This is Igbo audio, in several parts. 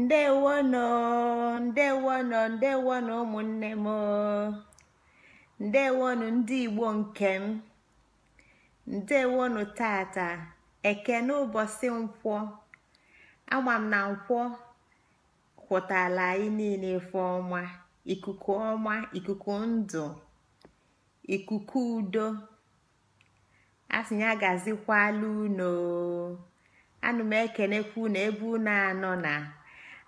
ndewono ndewono ndewono ụmụnne m ndewonu ndị igbo nke m ndewonu tata ekene ụbọchị nkwọ ama m na nkwọ kwụtala anyị niile ife ọma ikuku ọma ikuku ndụ ikuku udo asị agazikwala gazikwala unu anụ m ekenekwa na ebe unu anọ na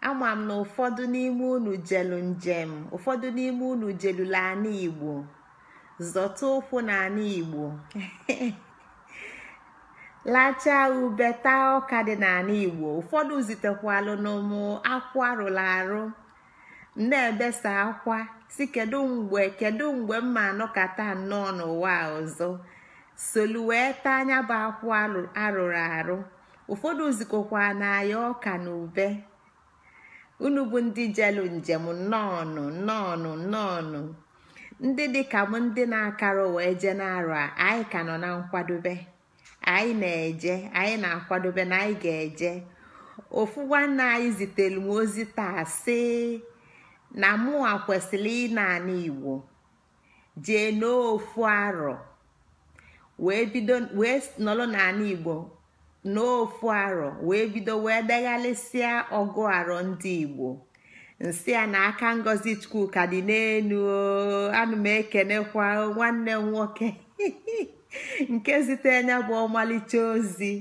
ama m na ụfọdụ n'ime unu jelu njem ụfọdụ n'ime unu jelula ana igbo zọta ụkwụ na ana igbo lachaa ube taa ọka dị n'ala igbo ụfọdụ zitekwalụ n'ụmụ akwụ arụrụ arụ na-ebesa akwa si kedu mgbe kedu mgbe mma anọkata nnọọ n'ụwa ọzọ solu wee taa anya bụ akwụ arụrụ arụ ụfọdụ zikọkwa na ya ọka na ube unu bụ ndị jelu njem nnọọnụ nnọọnụ nnọọnụ ndị dịka m ndị na-akara wee je na a anyị ka nọ na nkwadobe anyị na-eje anyị na-akwadobe na anyị ga-eje ofu nwanne anyị zitere m ozi taa sị na mụwa kwesịrị ị naanị igbo jee n'ofu arọ wee bido wee nọrọ n'ala igbo n'ofu aro wee bido wee deghalịsịa ọgụ aro ndị igbo nsị a na aka ngozi chukwuka dị n'elu anụ m ekenekwa nwanne m nwoke nke zitere anya bụ ọmalịcha ozi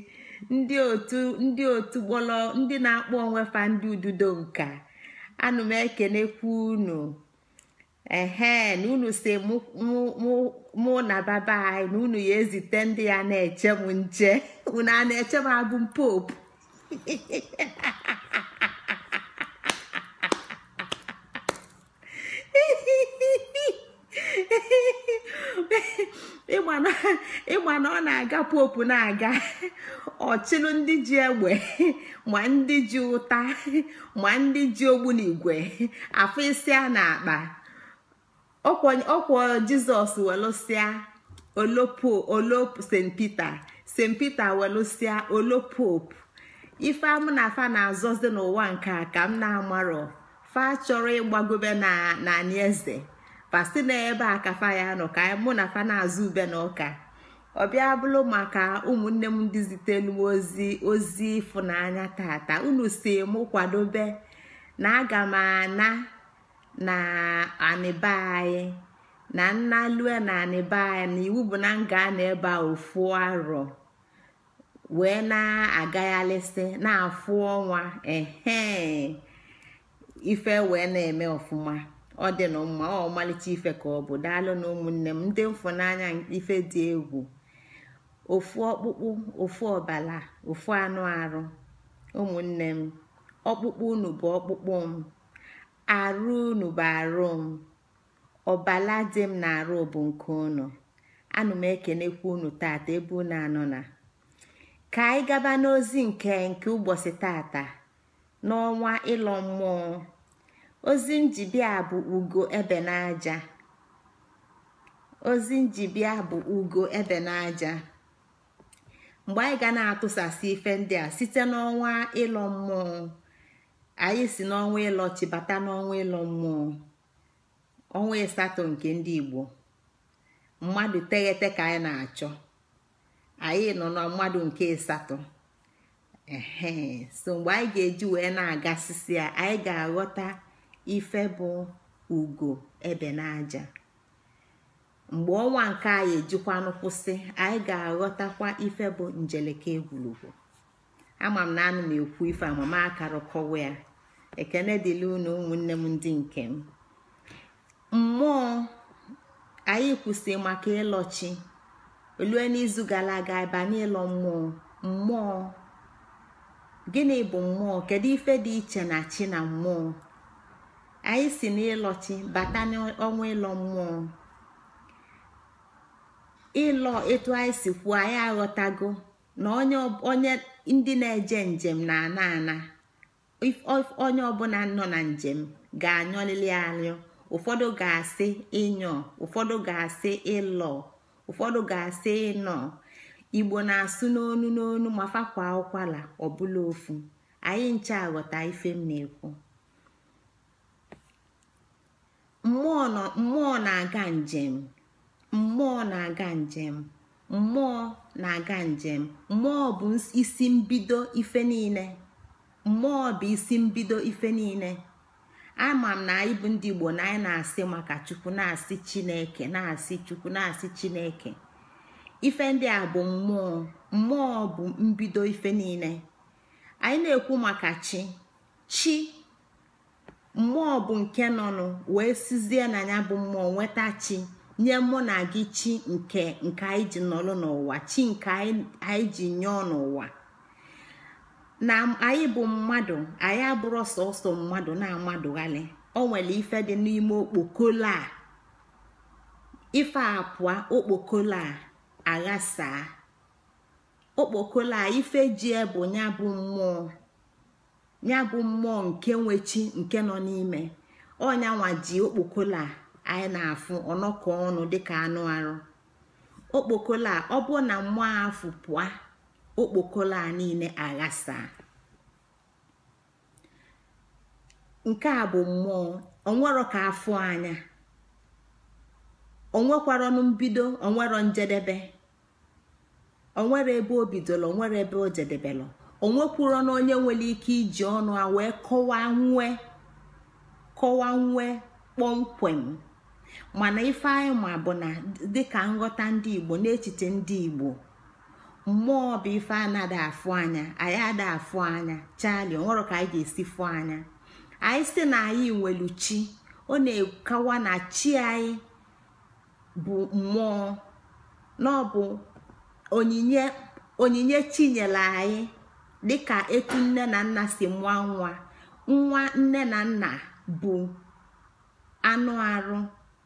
ndị otu ndị otu gbọlọ ndị na-akpọ onwefa fa ndị ududo nka anụ m ekenekwa unu ehe na unu si mụ na baba anyị na unu ya ezite ndị ya na-eche m nche unu a na-eche m abụ m popu ịgba na ọ na-aga popu na-aga ọchịlụ ndị ji egbe ma ndị ji ụta ma ndị ji ogbunigwe afọ isi a na-akpa ọkwọ jizọs welụsịa olopo olopo st pete st peter welụsịa olopopu ife amụ na afa na-azọzi n'ụwa nke a ka m na-amarọ fa chọrọ ịgbagobe na anị eze pasi na ebe a ka fa ya nọ ka mụ na fa na-azụ ube na ọka ọbịa bụlụ maka ụmụnne m ndị zitelu ozi ozi ịfụnanya tata unu si mụ kwadobe na aga m ana na anịba na na nnalue na anịba anyị na iwu bụ na nga na-ebe a ofu arọ wee na-agaghalịsị na-afụ ọnwa ehe ife wee na-eme ọfụma ọ dị na mma ọ ọmalịcha ife ka ọ bụ daalụ na ụmụnne m ndị mfụnanya ife dị egwu ofu ọkpụkpụ ofu ọbala ofu anụ arụ ụmụnne m ọkpụkpụ unu bụ ọkpụkpụ m arụ unu bụ arụ m ọbala dị m na-arụ bụ nke unu anụ m ekenekwa unu tata ebe unu anọ na ka anyị gaba n'ozi nke nke ụbọchị tata n'ọnwa ịlọ mmụọ ozi njibia bụ ugo ebe n'aja ozi njibia bụ ugo ebe n'aja mgbe anyị ga na-atụsasị ife ndị a site n'ọnwa ịlọ mmụọ anyị si n'ọnwa ịlọ bata n'ọnwa ịlọ mmụọ ọnwa ịsatọ nke ndị igbo mmadụ teghete ka anyị na-achọ anyị nọ na mmadụ nke ịsatọ ehe so mgbe anyị ga-eji wee na-agasịsị a, anyị ga-aghọta ife bụ ugo ebe n'aja mgbe ọnwa nke anyị ejikwanụ kwụsị anyị ga-aghọtakwa ife bụ njeleke egwurugwu ama m na anụ m ekwu ife amama akarụkọwa ya ekene dịla unu ụmụnne m ndị nke m mmụọ anyị kwụsị maka ịlọchi olue n'izu gara aga banye ịlọ mmụọ mmụọ gịnị bụ mmụọ kedu ife dị iche na chi na mmụọ anyị si n'ịlọchi bata n'ọnwa ịlọ mmụọ ịlọ etu anyị si kwuo anyị aghọtago na onye ndị na-eje njem na-ana ana onye ọbụla nọ na njem ga-anyọlili anyụ ụfọdụ ga-asị ịnyọ ụfọdụ ga-asị ịlọ ụfọdụ ga-asị ịnọ igbo na-asụ n'onu n'onu ma fakwa ụkwala ọbụla ofu anyị nche aghọta ife m na-ekwu mmụọ na-aga njem mmụọ na-aga njem mmụọ na-aga njem mmụọ bụ isi mbido ife niile mmụọ bụ isi mbido ife niile ama m na anyị bụ ndị igbo na anyị na-asị maka chukwu na-asị chineke na-asị chukwu na-asị chineke ife ndị a bụ mmụọ mmụọ bụ mbido ife niile anyị na-ekwu maka chi chi mmụọ bụ nke nọnụ wee sizie na ya bụ mmụọ nweta chi nye mụ na gị chi nke nke anyị ji nọrọ n'ụwa chi nke anyị ji nyụọ n'ụwa na anyị bụ mmadụ anyị abụrụ sọsọ mmadụ na-amadụghalị o nwere ife dị n'ime okpokolo a ife apụọ okpokolo a aghasaa okpokolo a ife ji bụ ya bụ mmụọ ya bụ mmụọ nke nwe nke nọ n'ime ọnyanwa ji okpokolo a anyị na-afụ ọnọkọ ọnụ dịka anụ arụ okpokolo a ọ bụ na mmụọ afụ pụa okpokolo a niile aghasa nke a bụ mmụọ onwero ka afụ anya onwekwara mbido onwero njedebe onwere ebe o bidolo onwere ebe o jedebelụ onwekwuro na onye nwere ike iji ọnụ a wee kọwaa nwee kọwaa nwee kpọmkwem mana ife anyị ma bụ na dịka nghọta ndị igbo n'echiche ndị igbo mmụọ bụ ife anaghị afụ anya anyị ada afụ anya chali onwere ka anyị ga-esi fụ anya anyị si na anyị nwelu chi ọ na-ekawa na chi anyị bụ mmụọ na onyinye onyinye chi nyere anyị dịka etu nne na nna si mụọ nwa nwa nne na nna bụ anụ arụ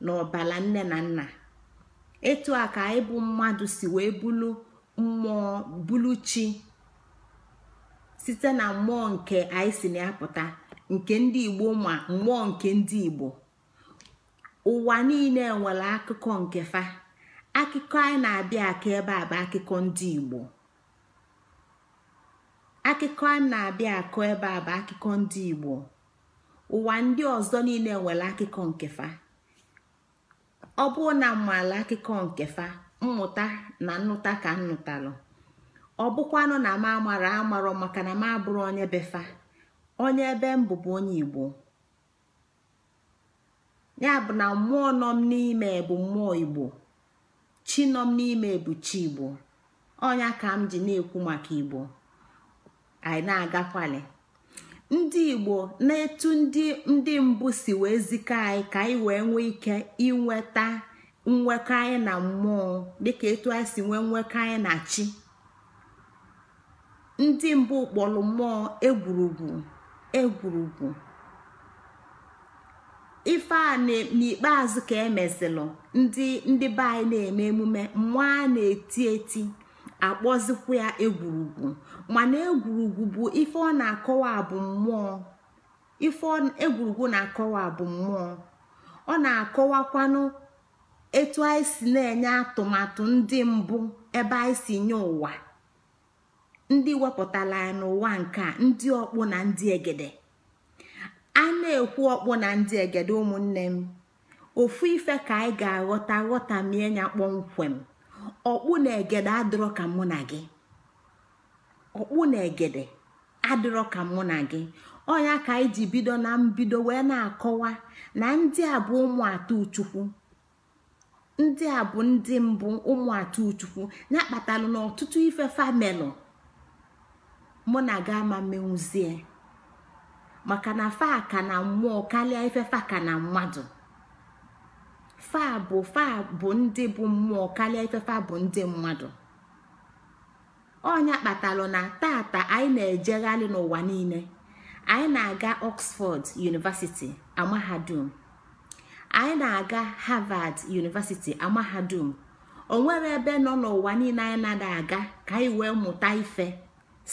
n'ọbala nne na nna etu a ka ịbụ mmadụ si wee bulu mmụọ bulu chi site na mmụọ nke anyị si na apụta nke ndị igbo ma mmụọ nke ndị igbo ụwa niile nwere akụkọ nke fa akụkọ anyị na-abịa aka ebe a bụ akụkọ ndị igbo akụkọ a na-abịa akụ ebe a bụ akụkọ ndị igbo ụwa ndị ọzọ niile nwere akụkọ nke fa ọ bụrụ na mmaala akụkọ nke fa mmụta na nnụta ka nnụtalụ ọ bụkwanụ na m amara amarọ maka na m abụrụ onye befa onye ebe m bụbu onye igbo ya bụ na mmụọ nọ m n'ime bụ mmụọ igbo chi nọ m n'ime bụ chi igbo ọnya ka m ji na-ekwu maka igbo anyị na-agakwali ndị igbo na-etu ndị ndị mbụ si wee zikọ anyị ka anyị wee nwee ike inweta nwekọ anyị na mmụọ dịka etu anyị si nwee nwekọ anyị na chi ndị mbụ kpọrọ mmụọ egwurugwu egwurugwu ife a n'ikpeazụ ka emezilụ ndị ndị be anyị na-eme emume mmụọ a na-eti eti akpọzikwa ya egwurugwu mana egwurugwu bụ ife ọ na-akọwa bụ mmụọ ife egwurugwu na-akọwa bụ mmụọ ọ na-akọwakwanụ etu anyị si na-enye atụmatụ ndị mbụ ebe anyị si nye ụwa ndị wepụtara ya n'ụwa nke ndị ọkpụ na ndị egede a na-ekwu ọkpụ na ndị egede ụmụnne m ofu ife ka anyị ga-aghọta ghọtamie ya kpọmkwem ọkpụ na egede adịrọ ka mụ na gị ọkpụ na egede adịrọ ka mụ na gị ọnya ka anyị ji bido na mbido wee na-akọwa na ndị a bụ ụmụ atọ uchukwu ndị a bụ ndị mbụ ụmụ atọ uchukwu ya kpatalụ n'ọtụtụ ife famelụ mụ na gị ama menwuzie maka na fa ka na mmụọ karịa ife fa ka na mmadụ fa bụ fa bụ ndị bụ mmụọ karịa ifefa bụ ndị mmadụ ọnya kpatalụ na tata anyị na-ejegharị n'ụwa niile anyị na-aga Oxford University amahadum anyị na-aga Harvard University amahadum onwere ebe nọ n'ụwa niile anyị na-ada aga ka anyị wee mụta ife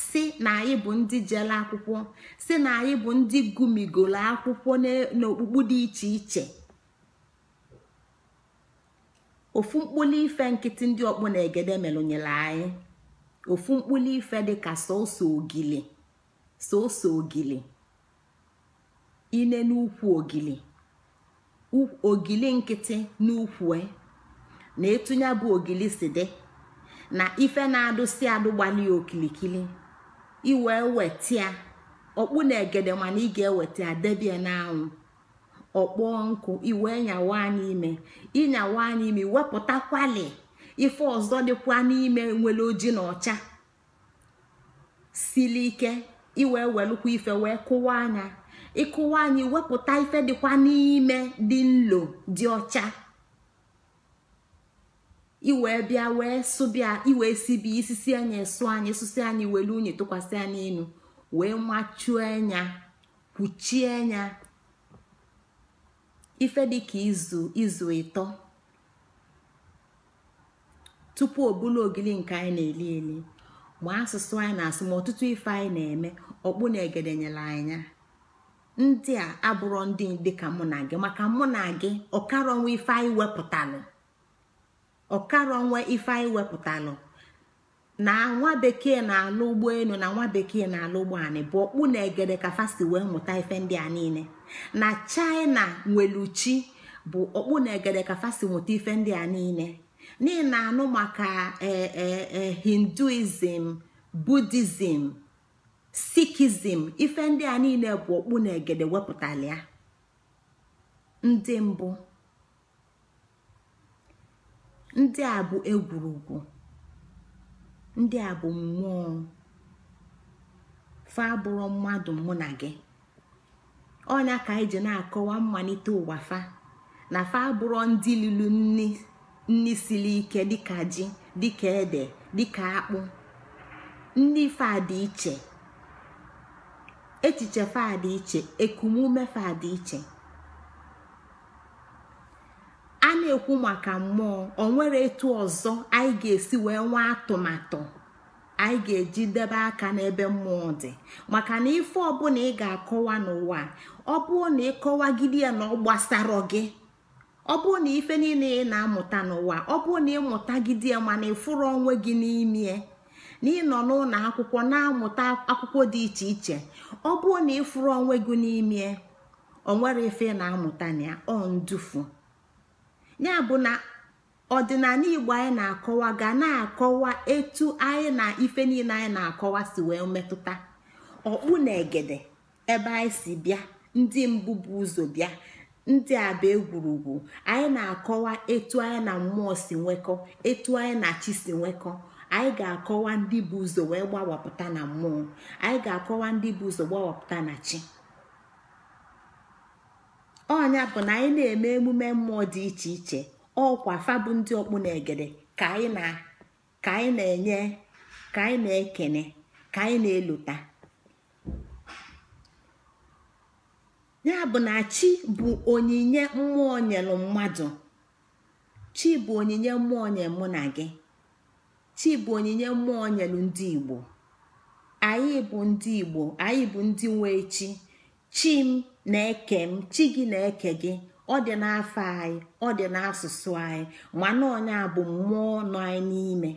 si na anyị bụ ndị jela akwụkwọ si na anyị bụ ndị gụmigoro akwụkwọ n'okpukpu dị iche iche ofu mkpụlụ ife nkịtị ndị ọkpụ na egede melụnyere anyị ofu mkpuli ife dika sọsọ ogili sọsọ ogili ine n'ukwu ogili ogili nkịtị n'ukwu e, na etunya bụ ogili si dị na ife na-adụsi ya okilikili iwee wetia ọkpụ na egede mana ị ga-eweta ya debie n'anwụ ọkpọ nkụ iwe nyawa anyị ime ịnyawa anyị ime wepụtakwali ife ọzọ dịkwa n'ime nwere oji na ọcha Sili ike iwe welụkwa ife wee kụwa anya ịkụwa anyị iwepụta ife dịkwa n'ime dị nlo dị ọcha iwe bịa wee sụbịa iwe sibi isisi anya esụ anyị susi anyị welu unyi tụkwasị anyị enu wee machuo anya kwuchie anya ife dịka izu izu ịtọ tupu obulu ogili nke anyị na-eli eli ma asụsụ anyị na-asụ ma ọtụtụ ife anyị na-eme ọkpụ na egede nyere anya ndị a abụrọ ndị dị ka mụ na gị maka mụ na gị ọkara ife anyị wepụtalụ ife anyị wepụtalụ na nwa bekee na-alụ ụgbọelu na nwa bekee na-alụ ụgbọanị bụ okpu na egede ka wee mụta ife ndị a niile na china nweluchi bụ okpu na egede ka fasi mụta ife ndị a niile n'ihi na anụ maka e, e, e, hinduism buddhism sikizm ife ndị a niile bụ okpu na egede wepụtara ya ndị mbụ ndị a bụ egwurugwu ndị a bụ mmụọ fa bụrụ mmadụ mụ na gị ọnya ka anyị ji na-akọwa mmalite ụwa fa na fa bụrụ ndị lilu nni siri ike ka ji dịka ede dịka akpụ ndị fa dị iche echiche fa dị iche ekumume fa dị iche a na-ekwu maka mmụọ ọ nwere etu ọzọ anyị ga-esi wee nwee atụmatụ anyị ga-eji debe aka n'ebe mmụọ dị maka na ife ọbụla ị ga-akọwa n'ụwa ọ bụrụ na ịkọwagide ya na ọ gbasara gị ọ bụrụ na ife niile ị na-amụta n'ụwa ọ bụrụ na ịmụtagide ya mana ịfụrụ onwe gị n'ime na ịnọ n'ụlọ akwụkwọ na-amụta akwụkwọ dị iche iche ọ bụrụ na ịfụrụ onwe gị n'ime onwere ife na-amụta na ya ọ ndufu ya bụ na ọdịnala igbo anyị na-akọwa ga na-akọwa etu anyị na ife niile anyị na-akọwa si wee metụta ọkpụ na egede ebe anyị si bịa ndị mbụ bụ ụzọ bịa ndị abụ egwurugwu anyị na-akọwa etu anyị na mmụọ si nwekọ etu anyị na chi si nwekọ anyị ga-akọwa ndị bụ ụzọ wee gbawapụta na mmụọ anyị ga-akọwa ndị bụ ụzọ gbawapụta na chi ọnya bụ na anyị na-eme emume mmụọ dị iche iche ọkwa fabụ ndị ọkpụ na egede ka anyị na-enye ka anyị na-ekene ka anyị na-elota ya bụ na chi bụ onyinye mmụọ nyelụ mmadụ chi bụ onyinye mmụọ nye mụ na gị chi bụ onyinye mmụọ nyelụ ndị igbo anyị bụ ndị igbo anyị bụ ndị nwe chi chi na-eke m chi gị na-eke gị ọ dị n'afọ anyị ọ dị n'asụsụ anyị mana onye bụ mmụọ nọ anyị n'ime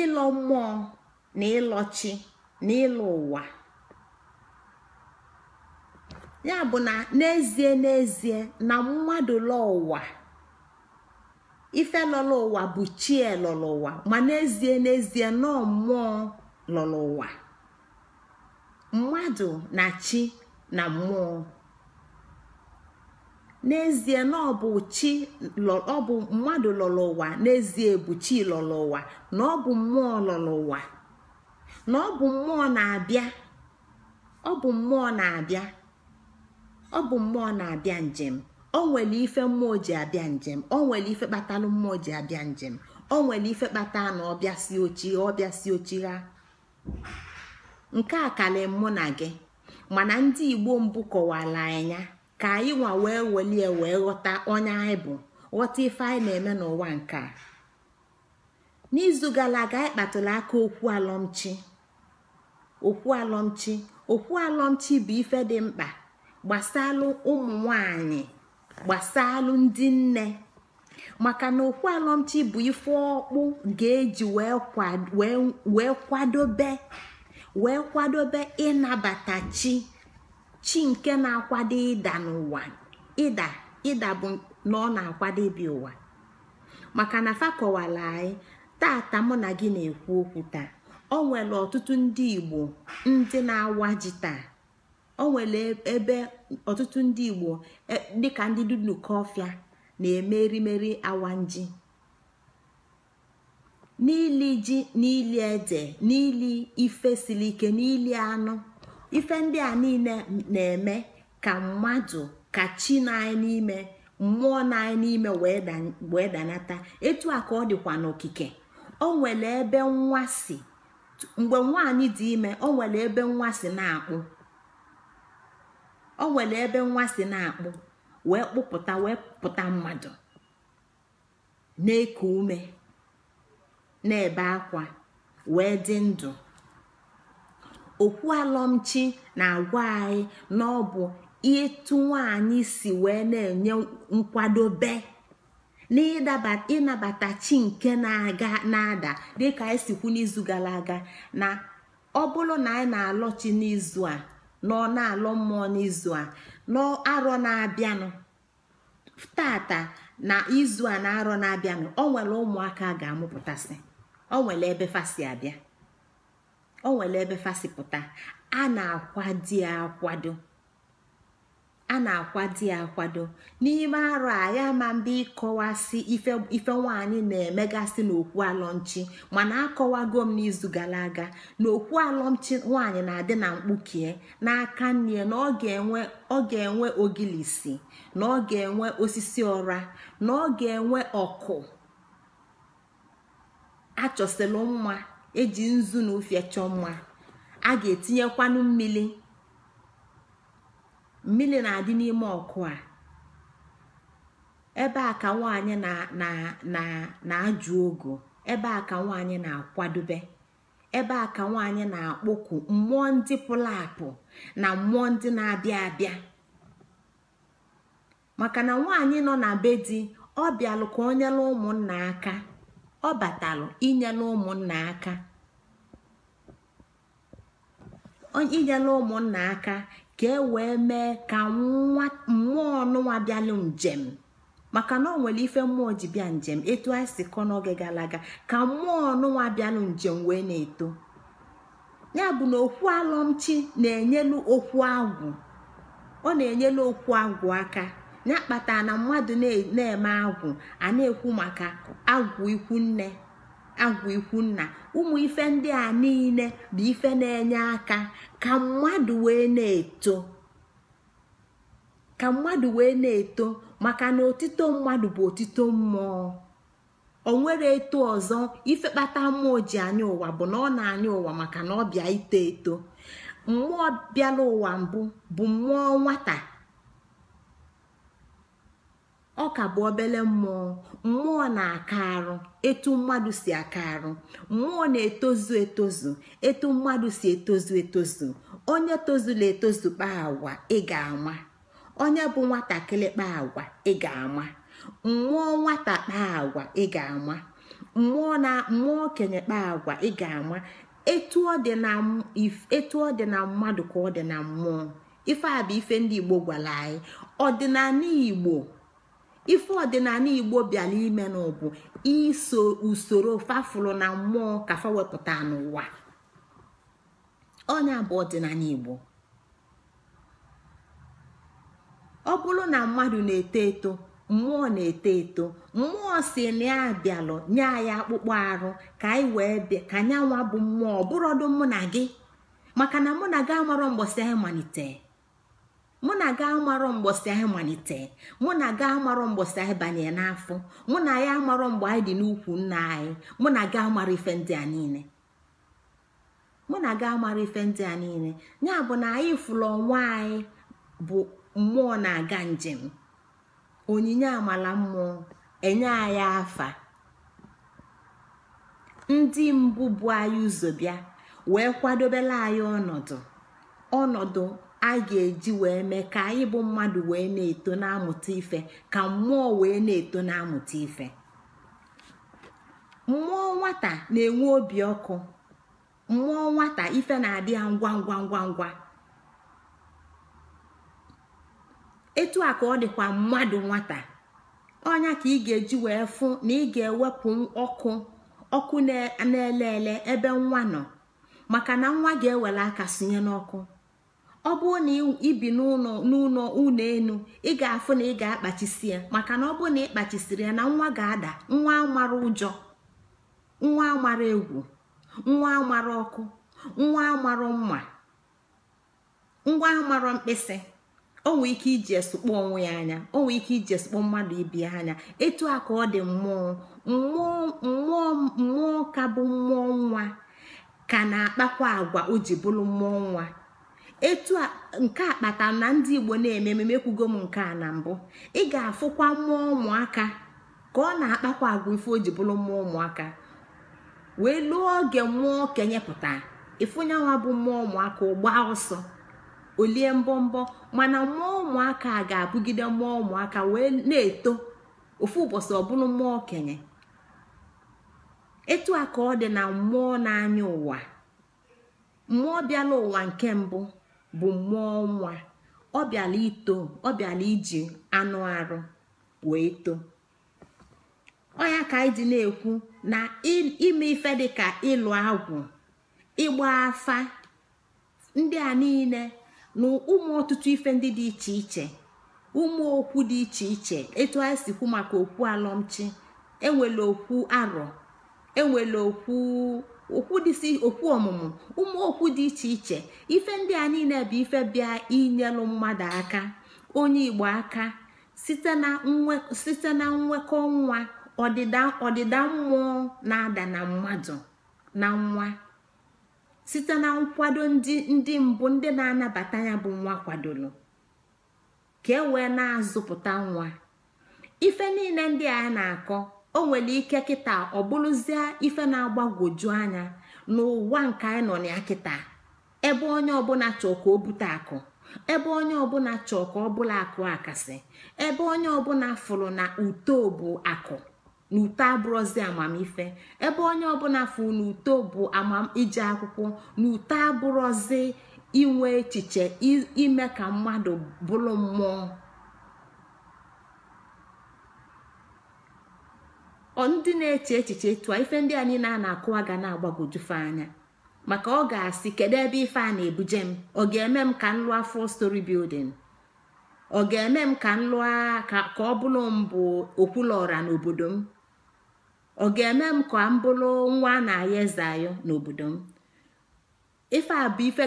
ịlọ mmụọ na ịlọ chi na ịlọ ụwa ya bụ na n'ezie n'ezie na mmadụ lọ ụwa ife lọlọ ụwa bụ chie elọlọ ụwa ma n'ezie n'ezie nọ mmụọ lọlọ ụwa mmadụ na chi na mmụọ n'ezie na ọ bụ chi ọ bụ mmadụ lọrọ ụwa n'ezie bụ chi lọrọ ụwa na ọ bụ mmụọ lọrọ ụwa na ọ bụ mmụọ na-abịa ọ bụ mmụọ na-abịa ọ bụ mmụọ na-abịa njem o nwere ife mmụọ ji abịa njem o nwere ife kpatalụ mmụọ ji abịa njem o nwere ife kpata na ọbịasi ochi ọbịasi ochi ha nke a karịrị mụ na gị mana ndị igbo mbụ kọwara anya ka anyị nwa wee welie wee ghọta onye anyị bụ ghọta ife anyị na-eme n'ụwa nke a n'izu gara aga aka okwu alọmchi okwu alọmchi okwu alọmchi bụ ife dị mkpa gbasalụ ụmụ nwanyị gbasalụ ndị nne maka na okwu alọmchi bụ ife ọkpụ ga-eji wee kwadobe wee kwadobe ịnabata chi chi nke na-akwado ịda n'ụwa ịda ịda bụ na ọ na-akwado ibi ụwa maka na fa fakọwala anyị tata mụ na gị na-ekwu okwu taa o nwere ọtụtụ ndị igbo ndị na-awa ji taa o nwere ebe ọtụtụ ndị igbo e, dịka ndị dudukọfịa na-eme erimeri awa nji n'ili ji n'ili ede n'ili ife siri ike n'ili anụ ife ndị a niile na-eme ka mmadụ ka chi na n'ime mmụọ na n'ime wee danata etu a ka ọ dịkwa n'okike o nwere ebe nwa si mgbe nwaanyị dị ime o nwere ebe nwa si na-akpụ o ebe nwa si na wee kpụpụta wee pụta mmadụ na-eku ume na-ebe akwa wee dị ndụ okwu alọmchi na-agwa anyị na ọ bụ ịtụ nwaanyị si wee na-enye nkwadobe na ịnabata chi nke na-aga na-ada dịka anyị sikwu n'izu gara aga na ọ bụrụ na anyị na-alọ chi n'izu a na ọ na-alọ mmụọ n'izu a arọ na-abịanụ tata na izu a na arọ na-abịanụ o nwere ụmụaka ga-amụpụtasị o nwere ebe fasi abịa o nwere ebe fasi pụta a na-akwadi akwado a na-akwadi akwado n'ime arụ a ya ma mba ịkọwasị ife nwaanyị na-emegasị n'okwu alọmchi mana akọwago m n'izu gara aga na okwu alọmchi nwaanyị na-adị na mkpukie n'aka nne na ọ ga-enwe ogilisi na ọ ga-enwe osisi ọra na ọ ga-enwe ọkụ achọsilụ mma eji nzu na ụfịa chọọ mma a ga-etinyekwanụ mmiri mmiri na-adị n'ime ọkụ a ebe a ka nwaanyị na-ajụ ogo ebe a ka nwaanyị na-akwadobe ebe a ka nwaanyị na-akpọku mmụọ ndị pụrụ na mmụọ ndị na-abịa abịa maka na nwaanyị nọ na be di ọ ka nyere ụmụnna aka ọ batalụ inyela ụmụnna aka aka ka e wee mee ka mmụọ nụnwa bịalụ njem maka na ọ nwere ife mmụọ ji bịa njem etu anyị si kọ n'oge gara aga ka mmụọ ọnụnwa bịalụ njem wee na-eto ya bụ na okwu alọmchi na-enyelu okwu agwụ ọ na-enyelu okwu agwụ aka ya kpata na mmadụ na-eme agwụ a na-ekwu maka agwụ ikwu nna ụmụ ife ndị a niile bụ ife na-enye aka ka mmadụ wee na-eto maka na otito mmadụ bụ otito mmụọ o nwere eto ọzọ ife kpata mmụọ ji anya ụwa bụ na ọ na-anya ụwa maka na ọ bịa ito eto mmụọ bịala ụwa mbụ bụ mmụọ nwata ọ ka bụ obele mmụọ mmụọ na-aka arụ etu mmadụ si aka arụ mmụọ na-etozu etozu etu mmadụ si etozu etozu onye tozula etozu kpaa agwa ịga ama onye bụ nwatakịrị kpaa agwa ịga ama mmụọ nwata kpaa agwa ịga ama mmụọ na mmụọ okenye kpaa agwa ịga ama etu ọ dị na mmadụ ka ọ dị na mmụọ ife a bụ ife ndị Igbo gwara anyị ọdịnala Igbo ife ọdịnala igbo bịara ime n'ụbụ iso usoro fafụlụ na mmụọ kafa wepụta n'ụwa onye bụ ọdịnala igbo ọ bụrụ na mmadụ na-eto eto mmụọ na-eto eto mmụọ si na ya bịalụ nye anyị akpụkpọ arụ ka anyị wee bịa ka bụ mmụọ bụrọdụ mụ na gị maka na mụ na gị amarọ mgbọsị anyị malitere mụ na ga amarọ mgbọsị anyị malite mụ na ga amarọ mgbọsị anyị banye n'afọ mụ na ya amarọ mgbe anyị dị n'ukwu nna anyị mụ na ga amara ife ndị a niile mụ na ga amara ife ndị a niile ya bụ na anyị fụrụ ọnwa anyị bụ mmụọ na-aga njem onyinye amala mmụọ enye anyị afa ndị mbụ bụ anyị ụzọ bịa wee kwadobela anyị ọnọdụ ọnọdụ a ga-eji wee mee ka anyị bụ mmadụ wee na-eto na-amụta ife ka mmụọ wee na-eto na-amụta ife mmụọ nwata na-enwe obi ọkụ mmụọ nwata ife na-adị ya ngwa ngwa ngwa ngwa etu a ka ọ dịkwa mmadụ nwata ọnya ka ị ga-eji wee fụ na ị ga-ewepụ ọkụ ọkụ na-ele ele ebe nwa nọ maka na nwa ga-ewere aka sinye n'ọkụ ọ bụrụ na ibi n'ụlọ n'ụlọ ụlọ enu ị ga-afụ na ị ga-akpachisi ya maka na ọ bụrụ na ị kpachisiri ya na nwa ga-ada nwa mara ụjọ nwa mara egwu nwa mara ọkụ nwa mara mma nwa mara mkpịsị o nwee ike iji esukpọ onwe ya anya o nwee ike iji esokpo mmadụ ibi ya anya etu a ka ọ dị mmụọ mmụọ mmụọ ka bụ mmụọ nwa ka na-akpakwa agwa o ji bụrụ mmụọ nwa etu nke a kpata na ndị igbo na-eme ememe kwugo m nke a na mbụ ị ga-afụkwa mmụọ ụmụaka ka ọ na-akpakwa agwa ife o ji bụrụ mmụọ ụmụaka wee lụọ oge mmụọ okenye pụta ifunyanwa bụ mmụọ ụmụaka gbaa ọsọ olie mbọmbọ mana mmụọ ụmụaka ga-abụgide mmụọ ụmụaka wee na-eto ofu ụbọchị ọbụla mmụọ okenye etu a ka ọ dị na mmụọ na-anya ụwa mmụọ bịala ụwa nke mbụ bụ mmụọ nwa ọ bịala ito ọ bịala iji anụ arụ wee too ọnya ka anyị dị na-ekwu na ime ife dị ka ịlụ agwụ ịgba afa ndị a niile na ụmụ ọtụtụ ife ndị dị iche iche ụmụ okwu dị iche iche etu anyị si kwu maka okwu alọmchi enwere okwu arọ enwere okwu okwu okwu ọmụmụ ụmụ okwu dị iche iche ife ndị a niile bụ ife bịa inyelụ mmadụ aka onye igbo aka site na nwekọ nwa ọdịda mmụọ na-ada na mmadụ na nwa site na nkwado ndị ndị mbụ ndị na-anabata ya bụ nwa kwadoro ka e wee na-azụpụta nwa ife niile ndị a na-akọ o nwere ike kịta ọ bụrụzie ife na-agbagwoju anya n'ụwa nke anyị nọ na ya kịta ebe onye ọbụla chọọ ka o bute akụ ebe onye ọbụla chọọ ka ọ bụla akụ akasị ebe onye ọbụla fụrụ na uto bụ akụ na uto abụrụzi amamife ebe onye ọbụla fụrụ na uto bụ iji akwụkwọ na uto abụrụzi inwe echiche ime ka mmadụ bụrụ mmụọ ndị na-eche echiche tụọ ife ndị anyị na ana na-akụwa ga na-agbagojufe anya maka ọ ga-asị kedu ebe ife a na-ebuje m ọ ga-eme m ka m lụọ full story ọ ga-eme m ka m ka ọ bụrụ mbụ okwulọra n'obodo m ọ ga-eme m ka m bụrụ nwa a na-aya eze ayọ n'obodo m ife a bụ ife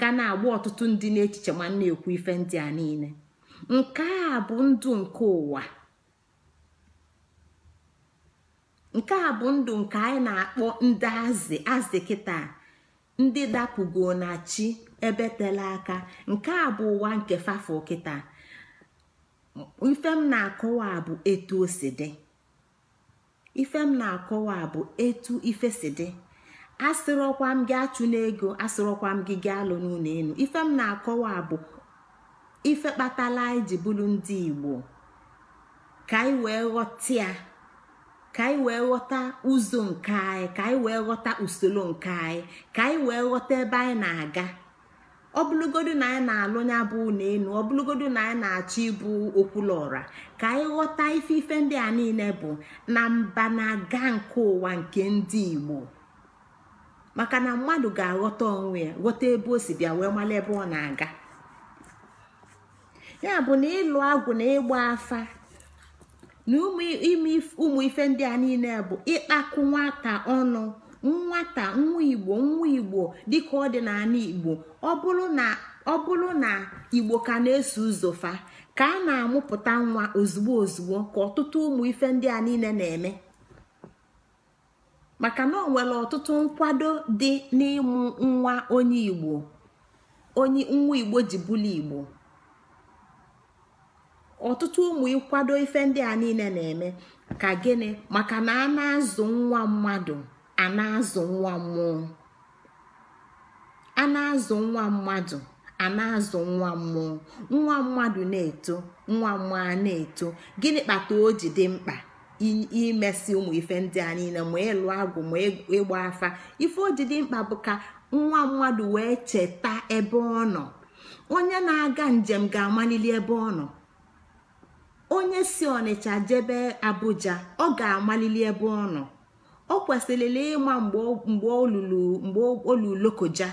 ga na-agba ọtụtụ ndị n'echiche ma na-ekwu ife ndị a niile nke a bụ ndụ nke ụwa nke a bụ ndụ nke anyị na-akpọ ndị azị azị kịta ndị dapụgo na chi ebe tela aka nke a bụ ụwa nke fafọ kịta ife m na-akọwa bụ etu o si dị ife m na-akọwa bụ etu ife si dị asịrọkwa m gị achụ n'ego asịrọkwa m gị gị alụ n'ụlọ elu ife m na-akọwa bụ ife kpatala anyị ji bụrụ ndị igbo ka anyị wee ghọta ya ka anyị wee ghọta ụzọ nke anyị ka anyị wee ghọta usoro nke anyị ka anyị wee ghọta ebe anyị na-aga bụlụgodu na anyị na-alụ nya bụ na ọ bụlụgodu na anyị na-achọ ịbụ okwulọra ka anyị ghọta ife ife ndị a niile bụ na mba na-aga nke ụwa nke ndị Igbo maka na mmadụ ga-aghọta onwe ya ghọta ebe o si bịa wee mara ebe ọ na-aga ya bụ na ịlụ agwụ na ịgba afa na ụmụ ife ndị a niile bụ ịkpakụ nwata ọnụ nwata nwa igbo nwa igbo dịka ọ dị n'ala igbo ọ bụrụ na igbo ka na-eso ụzọ ka a na-amụpụta nwa ozugbo ozugbo ka ọtụtụ ụmụ ife ndị a niile na-eme maka na ọ nwere ọtụtụ nkwado dị n'ịmụ nwa onye igbo onye nwa igbo ji bụlụ igbo ọtụtụ ụmụ ịkwado ife ndị a niile na-eme ka gịnị maka na a na-azụ nwa mmadụ a na-azụ nwa mmụọ a na-azụ nwa mmadụ a na-azụ nwa mmụọ nwa mmadụ na-eto nwa mmụọ na-eto gịnị kpata o ji dị mkpa imesi ụmụ ife ndị a niile ma ịlụ agwụ ma ịgba afa ife o ji dị mkpa bụ ka nwa mmadụ wee cheta ebe ọ nọ onye na-aga njem ga-amalili ebe ọ nọ onye si ọnịcha jebe abuja ọ ga-amalili ebe ọ nọ ọ kwesịrịla ịma mgbe olulu lokoja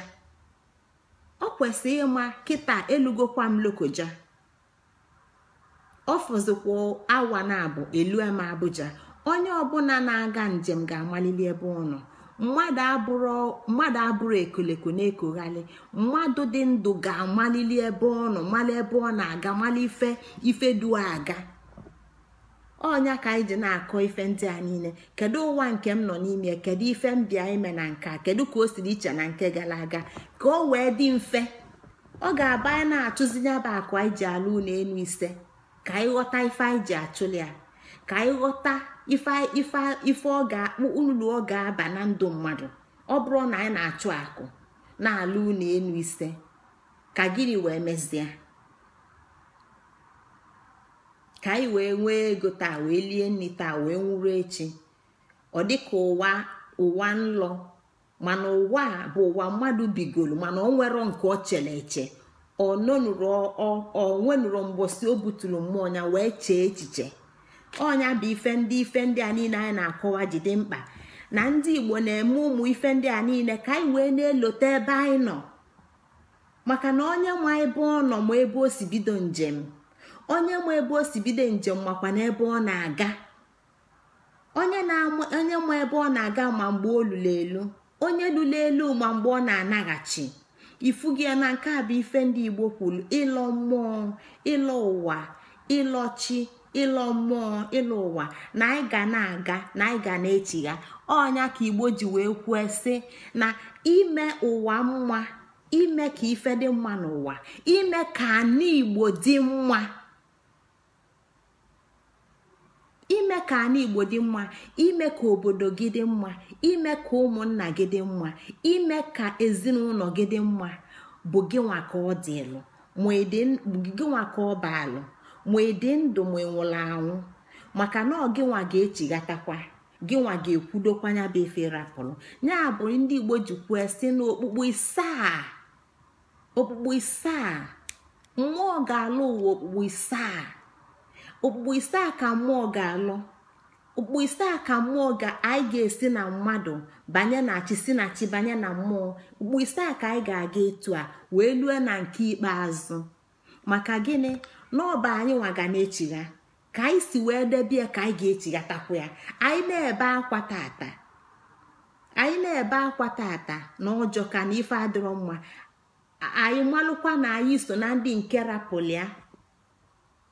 ọ kwesịrị ịma kịta elugokwa m lokoja ọ fọzikwa awa na abụ elu eme abuja onye ọbụla na-aga njem ga-amalili ebe ọ nọ mmadụ abụrụ ekoleko na-ekoghalị mmadụ dị ndụ ga-amalili ebe ọ nọ mali ebe ọ na-aga mali ife ife duo aga ọnya ka anyị ji na-akọ ife ndị a niile kedu ụwa nke m nọ n'ime kedu ife m bịa ime na nke kedu ka o siri iche na nke gara aga ka o wee dị mfe ọ ga-aba anyị na-achụzi nyaba akụ anyị ji alụ ụlọ elu ise ka anyị ghọta ife anyị ji achụli ya ka anyị ghọta ife ife ife ọ ga ulu ọ ga-aba na ndụ mmadụ ọ bụrụ na anyị na-achụ akụ na-alụ unu enu ise ka gịnị wee mezie ka anyị wee nwee ego taa wee lie nri taa wee nwụrụ echi ọ dịka ụwa ụwa nlọ mana ụwa bụ ụwa mmadụ bigoro mana ọ nwere nke ọ chere eche ọ nwenụrụ mgbosi o buturu mmụọ ya wee chee echiche ọnya bụ ife ndị ife ndị a niile anyị na-akọwa jide mkpa na ndị igbo na-eme ụmụ ife ndị a niile ka anyị wee na-elote ebe anyị nọ maka na onye nwe ebe ọ nọ ma ebe o si bido njem onye nwe ebe o si bido njem makwa na ebe ọ na-aga onye nwe ebe ọ na-aga ma mgbe o lụrụ elu onye lụrụ elu ma mgbe ọ na-anaghachi ifugi gị na nke a bụ ife ndị igbo kwuru ịlọ mmụọ ịlọ ụwa ịlọ chi ịlọ mmụọ ịlọ ụwa na anyị ga na-aga na anyị ga na-echigha ọnya ka igbo ji wee kwue sị na ime ụwa mma ime ka ife dị mma n'ụwa ime ka anyị igbo dị mma ime ka ana igbo dị mma ime ka obodo gị dị mma ime ka ụmụnna gị dị mma ime ka ezinụlọ gị dị mma bụ gịnwa ka ọ dị ịlụ ma ịdị ka ọ baa baalụ ma ede ndụ ma ịnwụla anwụ maka na ọ gịnwa ga-echighatakwa gịnwa ga-ekwudokwa ya bụ efe rapụrụ ya bụ ndị igbo ji kwue si n'okpukpu isaa okpukpu isaa mmụọ ga-alụ ụwa okpukpu isaa okpukpu isaa ka mmụọ ga-alụ okpukpu isaa ka mmụọ ga anyị ga-esi na mmadụ banye na chi si na chi banye na mmụọ okpukpu isaa ka anyị ga-aga etu a wee lue na nke ikpeazụ maka gịnị n'ọba anyị nwaga na-echigha ka anyị si wee debe ya ka anyị ga-echighatakwa ya anyị na-ebe akwa tata anyị na-ebe akwa tata na ọjọ ka na ife adịrọ mma anyị malụkwa na anyị so na ndị nke rapụlịa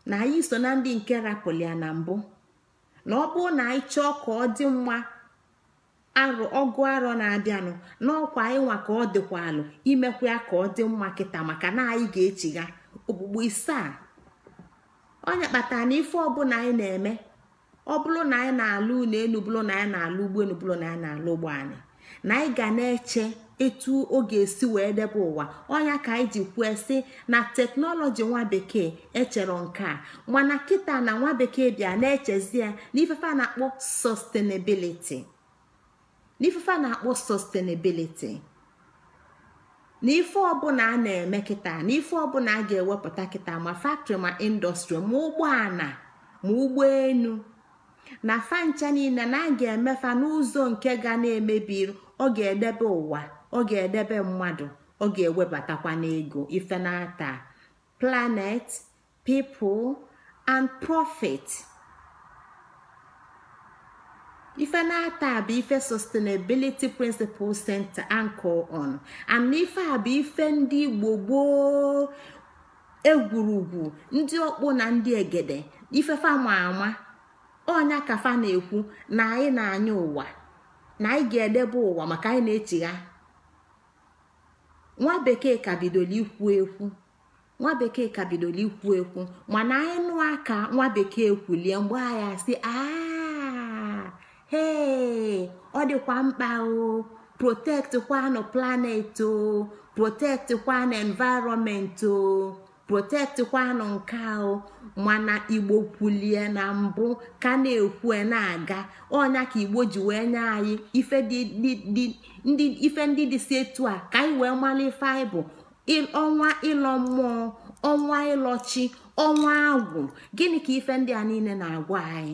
na anyị so na ndị nke rapụlịa na mbụ na ọ bụrụ na anyị chọọ ka ọ dị mma arụ ọgụ arọ na-abịanụ n'ọkwa anyị nwa ka ọ dịkwa alụ imekwa ya ka ọ dị mma kịta maka na anyị ga-echigha okpukpu ise a onye kpatara na ife ọbụla anyị na-eme ọ bụrụ na anyị na-alụ ụlọ elu bụrụ na anyị na-alụ ugbo elu bụrụ na anyị na-alụ ụgbọ anyị na anyị ga na-eche etu ọ ga-esi wee debe ụwa ọnya ka anyị ji kwue sị na teknọlọji nwa bekee echere nke a mana kịta na nwa bekee bịa na-echezi ya n'ifefe na-akpọ sustainability n'ifefe na-akpọ sustainability na ife ọbụla a na-eme kịta na ife ọbụla a ga-ewepụta kita ma faktọrị ma indọstrị ma ụgbọala ma ụgbọelu na fancha niile na a ga-emefa n'ụzọ nke ga na-emebi ọ ga-edebe ụwa ọ ga-edebe mmadụ ọ ga-ewebatakwa n'ego ife na-ata planet people and profit. ife na-ata a bụ ife sustainability Principle center ANCO on and ife a bụ ife ndị igbo gboo egwurugwu ndị ọkpụ na ndị egede ife ma ama ọnya ka fa na-ekwu na anyị na-anya ụwa na anyị ga-edebe ụwa maka anyị na ha. nwa bekee ka bidoro ikwu ekwu nwa bekee ka bidoro ikwu ekwu mana anyị nụ aka nwa bekee kwulie mgbe agha si aa ee ọ dịkwa mkpa o protect kwanụ planet o protect kwanụ environment o protect kwanụ nke o mana igbo kwulie na mbụ ka na-ekwu e na-aga ọnya ka igbo ji wee nye anyị ife ndị dị si etu a ka anyị wee mara ife anyị bụ ọnwa ịlọ mmụọ ọnwa ịlọchi ọnwa agwụ gịnị ka ife ndị a niile na-agwa anyị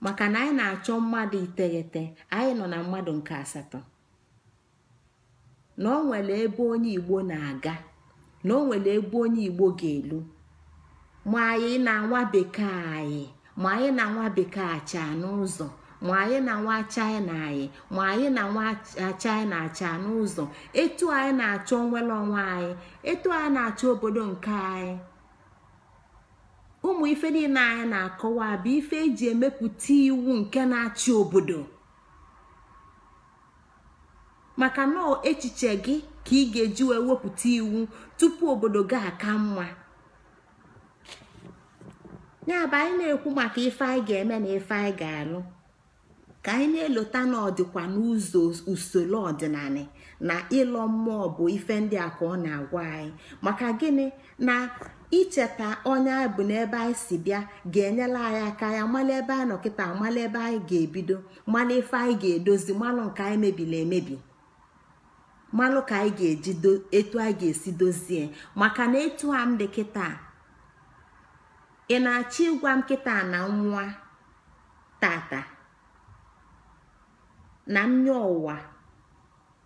maka na anyị na-achọ mmadụ iteghete anyị nọ na mmadụ nke asatọ na o nwere ebe onye igbo na-aga na o nwere ebe onye igbo ga-elu ma anyị na nwa bekee anyị ma anyị na nwa bekee acha n'ụzọ ma anyị na nwa china anyị ma anyị na nwa china acha n'ụzọ etu anyị na-achọ nwere onwe anyị etu anyị na-achọ obodo nke anyị ụmụ ife niile anyị na-akọwa bụ ife eji emepụta iwu nke na-achị obodo maka na echiche gị ka ị ga-eji wee wepụta iwu tupu obodo gị aka mma ya bụ anyị na-ekwu maka ife anyị ga-eme na ife anyị ga-alụ ka anyị na-elota na ọdịkwa n'ụzọ usoro ọdịnala na ịlọ mmụọ bụ ife ndị a ka ọ na-agwa anyị maka gịnị na icheta onye anyị bụ n'ebe anyị si bịa ga-enyela anyị aka ya mmalụ ebe anyị nọkịta amala ebe anyị ga-ebido mala ife anyị ga-edozi malụ nke anyị mebiri emebi malụ ka anyị ga-eji etu anyị ga-esi dozie maka na etu a m dị kịta ị na-achọ ịgwa m kịta na nwa tata na nya ụwa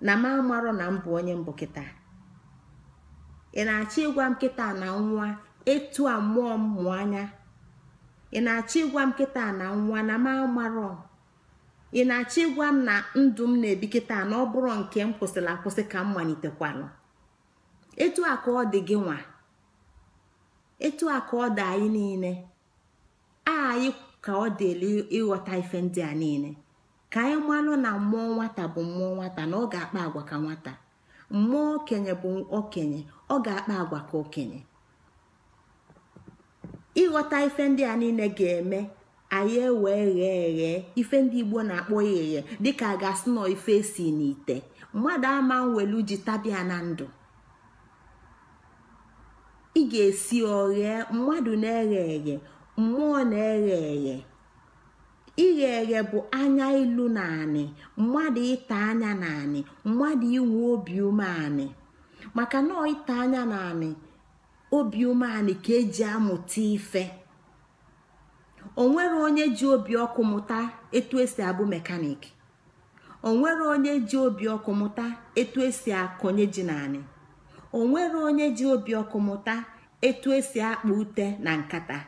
na m amarọ na m bụ onye mbụ kịta ị na-achọ ịgwa m kịta na nwa etu a mụọ m mụọ anya ị na-achọ ịgwa m kịta na nwa na m amarọ ị na-achọ ịgwa m na ndụ m na-ebi kịta na ọ bụrụ nke m kwụsịrị akwụsị ka m malitekwalụ etu a ka ọ dị gị nwa etu a ka ọ dị anyị niile anyị ka ọ dị ịghọta ife ndị a niile ka anyị malụ na mmụọ nwata bụ mmụọ nwata na ọ ga-akpa agwa ka nwata mmụọ okenye bụ okenye ọ ga-akpa agwa ka okenye ịghọta ife ndị a niile ga-eme anyị ewee ghee eghe ife ndị igbo na-akpọ ya eghe dịka a ga-asị nọ ife si n'ite mmadụ ama nwelu ji tabia na ndụ ị ga-esi oghe mmadụ na-eghe eghe mmụọ na-eghe eghe ighe eghe bụ anya ilu na anị mmadụ ịta anya na anị mmadụ inwe obi ume umeanị maka nọọ ịta anya na anị obi umeanị ka eji amụta ife onwere onye ji obi ọkụ mụta etu esi abụ mekanik onwere onye ji obi ọkụ mụta etu esi akọnye ji na onwere onye ji obi ọkụ mụta etu esi akpa ute na nkata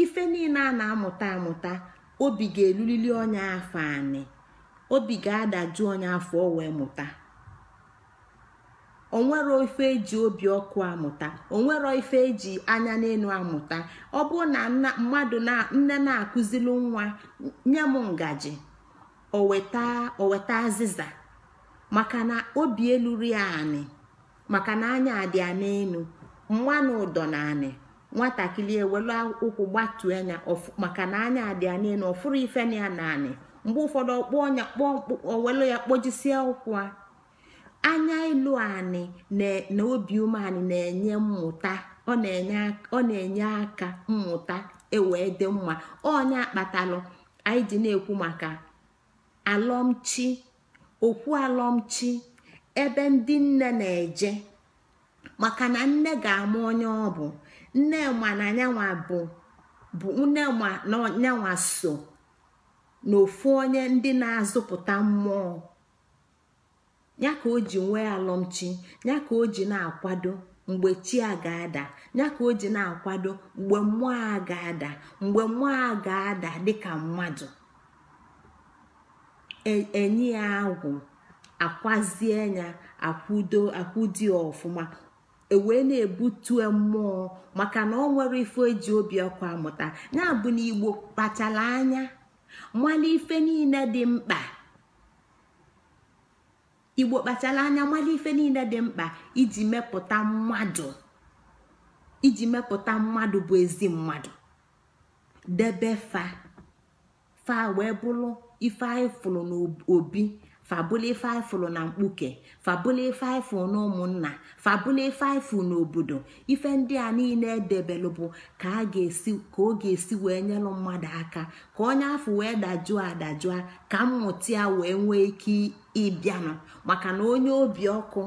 ife niile a na-amụta amụta obi ga-elulili onye afọ anị obi ga-adaju onye afọ o wee mụta onwero ife eji obi ọkụ amụta onwero ife eji anya n'elu amụta ọ bụ na mmadụ na nne na akụziri nwa nye m ngaji oweta azịza maka na obi eluru ya anị maka na anya dị ya n'elu mmanụ ụdọ na anị nwatakịrị ewelu ụkwụ gbatuo anya maka na anya dị ya niile ọfụrụ ife na ya naanị mgbe ụfọdụ ọkpọ ọnya owelu ya kpojisie ụkwụ anya ịlụ anị e- na obi umeanị na-enye mmụta ọ na-enye aka mmụta ewee dị mma onye kpatalụ anyị ji na-ekwu maka alọmchi okwu alọmchi ebe ndị nne na-eje maka na nne ga-ama onye ọ bụ nnema na anyanwa bụ bụ nnema na nyanwa so n'ofu onye ndị na-azụpụta mmụọ ya ka o ji nwee alọmchi ya ka o ji na-akwado mgbe chi a ga-ada ya ka o ji na-akwado mgbe mmụọ a ga-ada mgbe mmụọ a ga-ada dịka mmadụ e, enyi ya agwụ akwazie ya akwudo akwụdi ọfụma ewee na ebutu mmụọ maka na ọ nwere ife eji obi ọkụ amụta ya bụ na igbo kpachara anya mala ife niile dị mkpa igbo kpachara anya ife niile dị mkpa iji mepụta mmadụ iji bụ ezi mmadụ debe fa fa wee bụrụ ife anyị fụrụ n'obi fabụlifaịfụ na mkpuke fabụlifaịfụ na ụmụnna na n'obodo ife ndị a niile edebelụ bụ ka ka ọ ga-esi wee nyelụ mmadụ aka ka onye afọ wee dajụọ adajụọ ka mmụta ya wee nwee ike ịbịanụ maka na onye obi ọkụ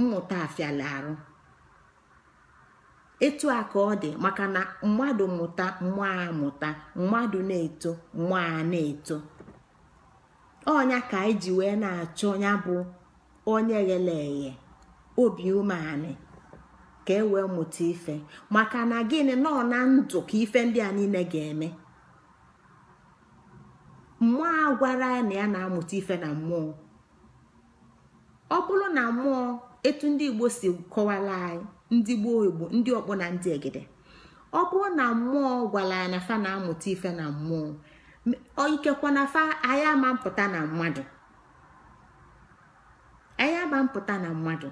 mmụta afịala arụ etu a ka ọ dị maka na mmadụ mụta mmụọ mụta mmadụ na-eto mmụọ na-eto onya ka anyị ji wee na-achọ ya bụ onye ghele eghe obi umeanị ka e wee mụta ife maka na gịnị nọ na ndụ ka ife ndị a niile ga-eme mmụọ a gwara ya na ya na-amụta ife na mmụọ ọ bụrụ na mmụọ etu ndị igbo si kọwara anyị ndị gboo igbo ndị ọkpọ na ndị egide ọ bụrụ na mmụọ gwara ya na fa na-amụta ife na mmụọ ikekwa na fa anyị ama mpụta na mmadụ anyị ama na mmadụ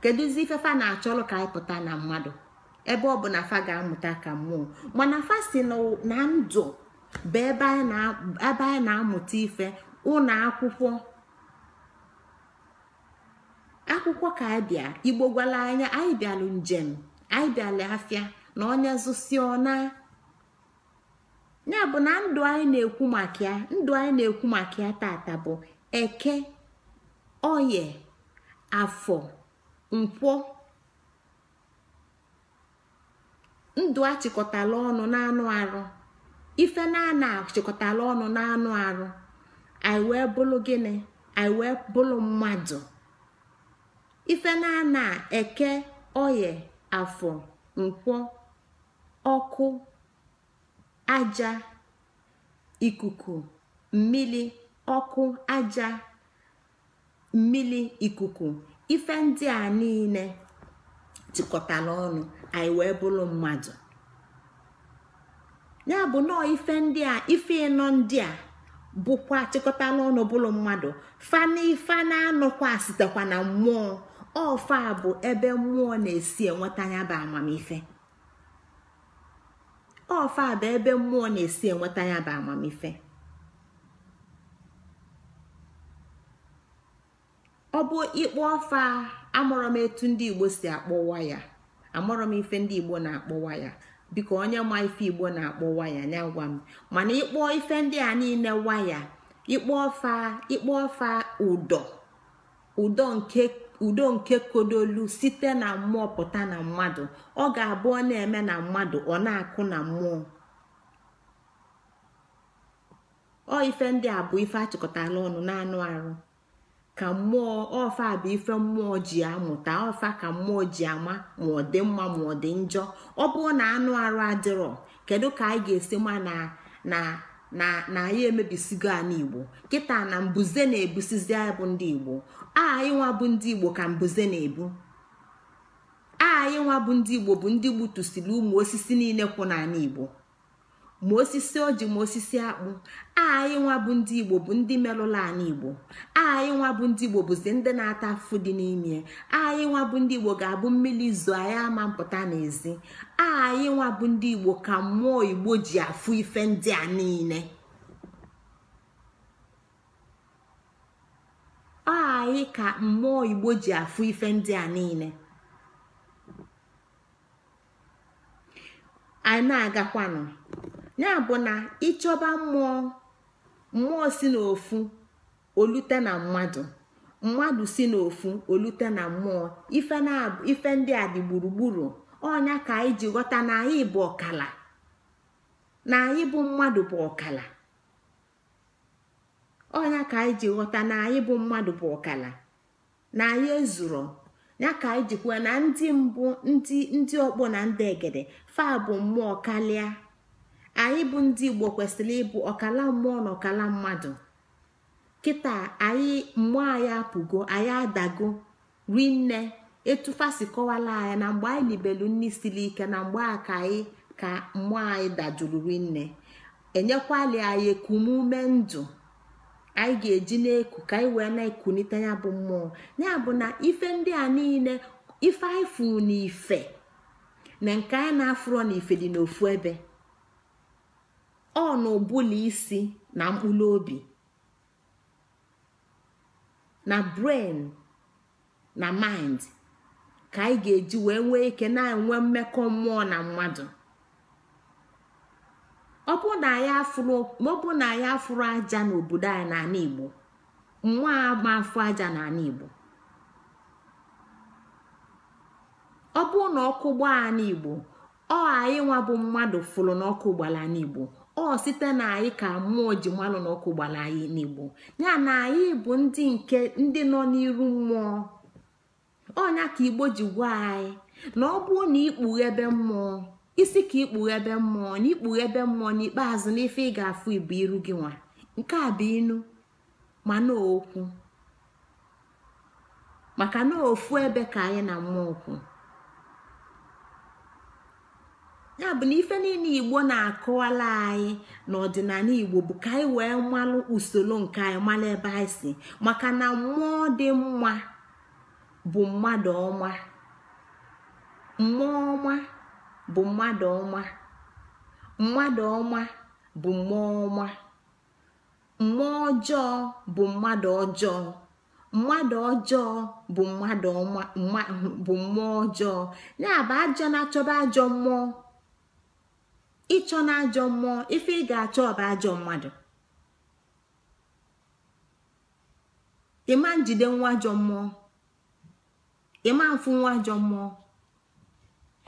kedụzi ifefa na-achọlụ ka anyị pụta na mmadụ ebe ọ bụ na fa ga-amụta ka mmụọ mana fa si na ndụ bụ ebe anyị na-amụta ife ụlọ akwụkwọ akwụkwọ ka anyị bịa igbo gwala anya anyị bịalụ njem anyị bịalụ afịa na onye zụsi ya bụ na ndụ anyị na-ekwu maka ya ndụ anyị na-ekwu maka ya tata bụ eke oye afọ nkwọ ndụ achịkọtala ọnụ na-anụ arụ ife na achịkọtala ọnụ na-anụ arụ anyị wee bụrụ gịnị anyị wee bụrụ mmadụ ife na eke oye afọ nkwọ ọkụ aja ikuku mmiri ọkụ aja mmili ikuku ife ndị a niile jikọtara ọnụ anyị wee bụrụ mmadụ ya bụ nọọ ife ndị a ife ịnọ ndị a bụkwa chịkọtala ọnụ bụrụ mmadụ fana na-anọkwa sitekwa na mmụọ ọfa bụ ebe mmụọ na-esi enweta ya bụ amamife ọfa bụ ebe mmụọ na-esi enweta ya bụ amamife ọ bụ ịkpọ ọfa amụrọ m etu ndị igbo si akpọwa ya amụrọ m ife ndị igbo na-akpọwa ya biko onye ma ife igbo na akpọ waya ya gwa m mana ịkpọ ife ndị a niile waya ịkpọ ọfa ịkpọ ọfa ụdọ ụdọ nke udo nke kodolu site na mmụọ pụta na mmadụ ọ ga-abụ na-eme na mmadụ ọ na-akụ na mmụọ ọ ife ndị a bụ ife achịkọtala ọnụ na-anụ arụ ka mmụọ ọfa bụ ife mmụọ ji amụta ọfa ka mmụọ ji ama ma ọ dị mma ma ọ dị njọ ọ na anụ arụ adịrọ kedu ka anyị ga-esi ma na na na anyị emebisigo ala igbo kịta na mbuze na-ebusizi anyị ndị igbo anyị nwa bụ ndị igbo ka mbuze na-ebu anyị bụ ndị igbo bụ ndị gbutusiri ụmụ osisi niile kwụ n'ala igbo ma osisi oji ma osisi akpụ anyị nwa bụ ndị igbo bụ ndị merụla ala igbo anyị nwa bụ ndị igbo bụzi ndị na-ata afụfụ dị n'ime anyị nwa bụ ndị igbo ga-abụ mmiri izu anyị ama mpụta n'ezi anyị nwa bụ ndị igbo ka mmụọ igbo ji afụ ife ndị a niile anyị ka mmụọ igbo ji afụ ife ndị a niile anyị na-agakwanụ ya bụ na ịchọba mmụọ mmụọ si n'ofu olute na mmadụ mmadụ si n'ofu olute na mmụọ ife ndị a dị gburugburu ọnya ka anyị ji ghọta na anyị bụ ọkala na anyị bụ mmadụ bụ ọkala ọnya ka anyị ji ghọta na anyị bụ mmadụ bụ ọkala na anyị ezuro ya ka anyị jikwa na ndị mbụ ndị ndị ọkpọ na ndị egede fa bụ mmụọ kalịa anyị bụ ndị igbo kwesịrị ịbụ ọkala mmụọ na ọkala mmadụ kịta anyị mmụọ anyị apụgo anyị adago rinne etufasi kọwala anyị na mgbe anyị libelu nne siri ike na mgbe a ka anyị ka mmụọ anyị dajuru rinne enyekwali anyị ekumume ndụ anyị ga-eji na-eku ka anyị wee na-ekunite ya bụ mmụọ ya bụ na ife ndị a niile ife anyị furu n'ife na nke anyị na-afụrọ n'ife dị n'ofu ebe ọ na ụbụla isi na mkpụrụ obi na brain na mind ka anyị ga-eji wee nwee ike na-enwe mmekọ mmụọ na mmadụ ọ bụ na anyị afụrụ aja n'obodo anyị n'ala Igbo nwa agba afụ aja n'ala Igbo ọ bụ na ọkụ gbaa ala Igbo ọ anyị nwa bụ mmadụ fụrụ n'ọkụ gbara ala ọ site na anyị ka mmụọ ji mmanụ na ọkụ gbara anyị n'igbo ya na anyị bụ ndị nke ndị nọ n'iru mmụọ ọnya ka igbo ji gwa anyị na ọ bụ na ikpughebe mmụọ isi ka ikpughebe mmụọ na ikpughebe mmụọ n'ikpeazụ n'ife ị ga-afụ ibu iru gị nwa nke a bụ inu na okwu maka na ofu ebe ka anyị na mmụọ okwu ya bụ na ife niile igbo na akụwala anyị n'ọdịnala igbo bụ ka anyị wee malụ usoro nke anyị malụ ebe anyị si maka na mmụọ dị mma bụ mmadụ ọma mmụọ ọma bụ mmadụ ọma mmadụ ọma bụ mmụọ ọma mmụọ ọjọọ bụ mmadụ ọjọọ mmadụ ọjọọ bụ mmadụ ọma bụ mmụọ ọjọọ ya bụ ajọ na-achọba ajọ mmụọ ịchọ na ajọ mmụọ ife ị ga-achọ ọba ajọ mmadụ ịma njide nwa ajọ mmụọ ịma mfụ nwa ajọ mmụọ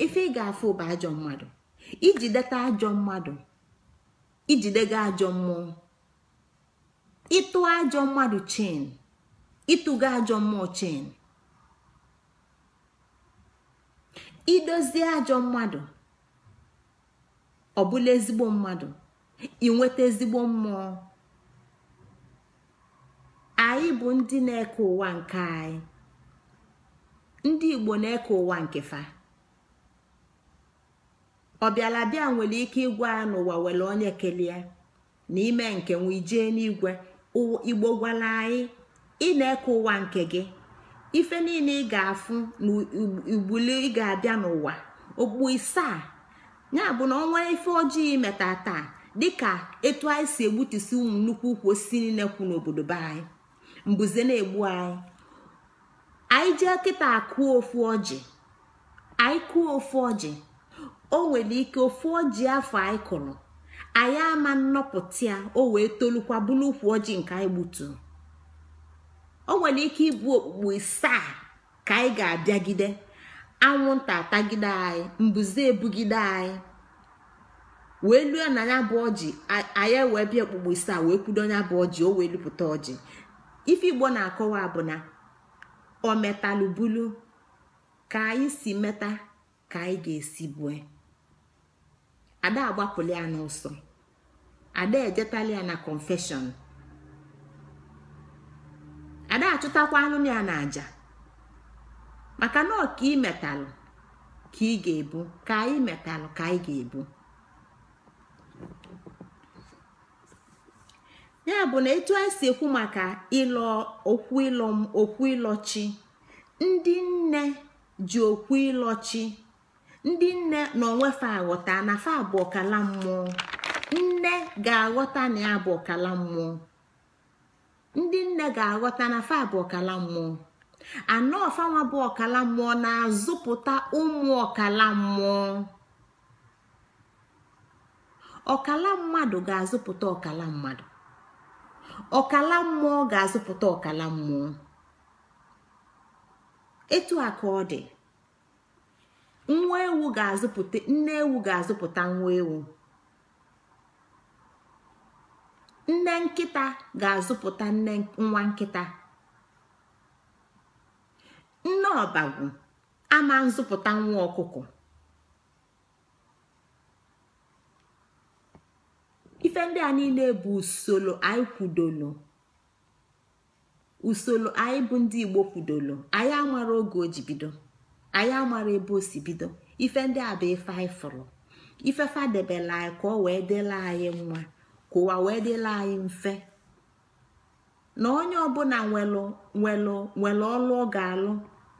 ife ị ga-afụ bụ ajọ mmadụ ijideta ajọ mmadụ ijidega ajọ mmụọ ịtụ ajọ mmadụ chen ịtụga ajọ mmụọ chin idozie ajọ mmadụ ọ bụla ezigbo mmadụ inweta ezigbo mmụọ anyị bụ ndị na-eke ụwa nke anyị ndị igbo na-eke ụwa nke fa ọbịala ọbịalabịa nwere ike ịgwa ya n'ụwa nwere onye kelee na ime nke nwere ijee n'igwe igbo gwala anyị ị na-eke ụwa nke gị ife niile ị ga-afụ na ugbuli ị ga-abịa n'ụwa okpu isaa ya bụ na ọnwa ife ojii meta taa dịka etu anyị si egbutusi ụmụ nnukwu ukwu osisi niile kwu n'obodo be anyị mbuze na-egbu anyị anyị jee kịta akụọ ofu ọjị anyị kụọ ofu ọjị o nwere ike ofu ọjị afọ anyị kụrụ anyị ama nnọpụta ya o wee tolukwa bụrụ ukwu ọjị nke anyị gbutu o nwere ike ịbụ okpukpu isaa ka anyị ga-abịagide anwụnta atagide anyị mbuze ebugide anyị wee luo na ya bụ ọjị anyị wee bịa okpukpo isi a wee kwudo ya bụ ọjị o wee lupụta ọjị ife igbo na-akọwa bụ na o metalubulu ka anyị si meta ka anyị ga-esi bue ada agbapụla ya n'ụsọ ada ejetala ya na confession ada achụtakwa anụ ya na aja maka na ọka imetalụ ka ị ga-ebu ka anyị ka anyị ga-ebu ya bụ na etu anyị si ekwu maka ịlọ okwu ịlọchi ndị nne ji okwu ịlọchi ndị nne na onwefe aghọta na fa mmụọ nne ga-aghọta na ya bụ mmụọ ndị nne ga-aghọta na fa abụ ọkala mmụọ anọ ọfanwa bụ ọkala mmụọ na-azụpụta ụmụ ọkala mmụọ ọkala mmadụ ga-azụpụta ọkala mmadụ ọkala mmụọ ga-azụpụta ọkala mmụọ etu a ka ọ dị nwa ewu ga-azụpụta nne ewu ga-azụpụta nwa ewu nne nkịta ga-azụpụta nne nwa nkịta nne ọbagwu ama nzụpụta nwa ọkụkọ ife ndị a niile bụ usoro anyị kwudolo usoro anyị bụ ndị igbo kwudolo anyị amara oge o ji bido anyị amara ebe o si bido ife ndị a bụ ife anyị fụrụ ife fadebela anyị ka ọ wee dịla anyị mma ka ụwa wee dịla anyị mfe na onye ọbụla nwelụ nwelụ ọlụ ọ ga-alụ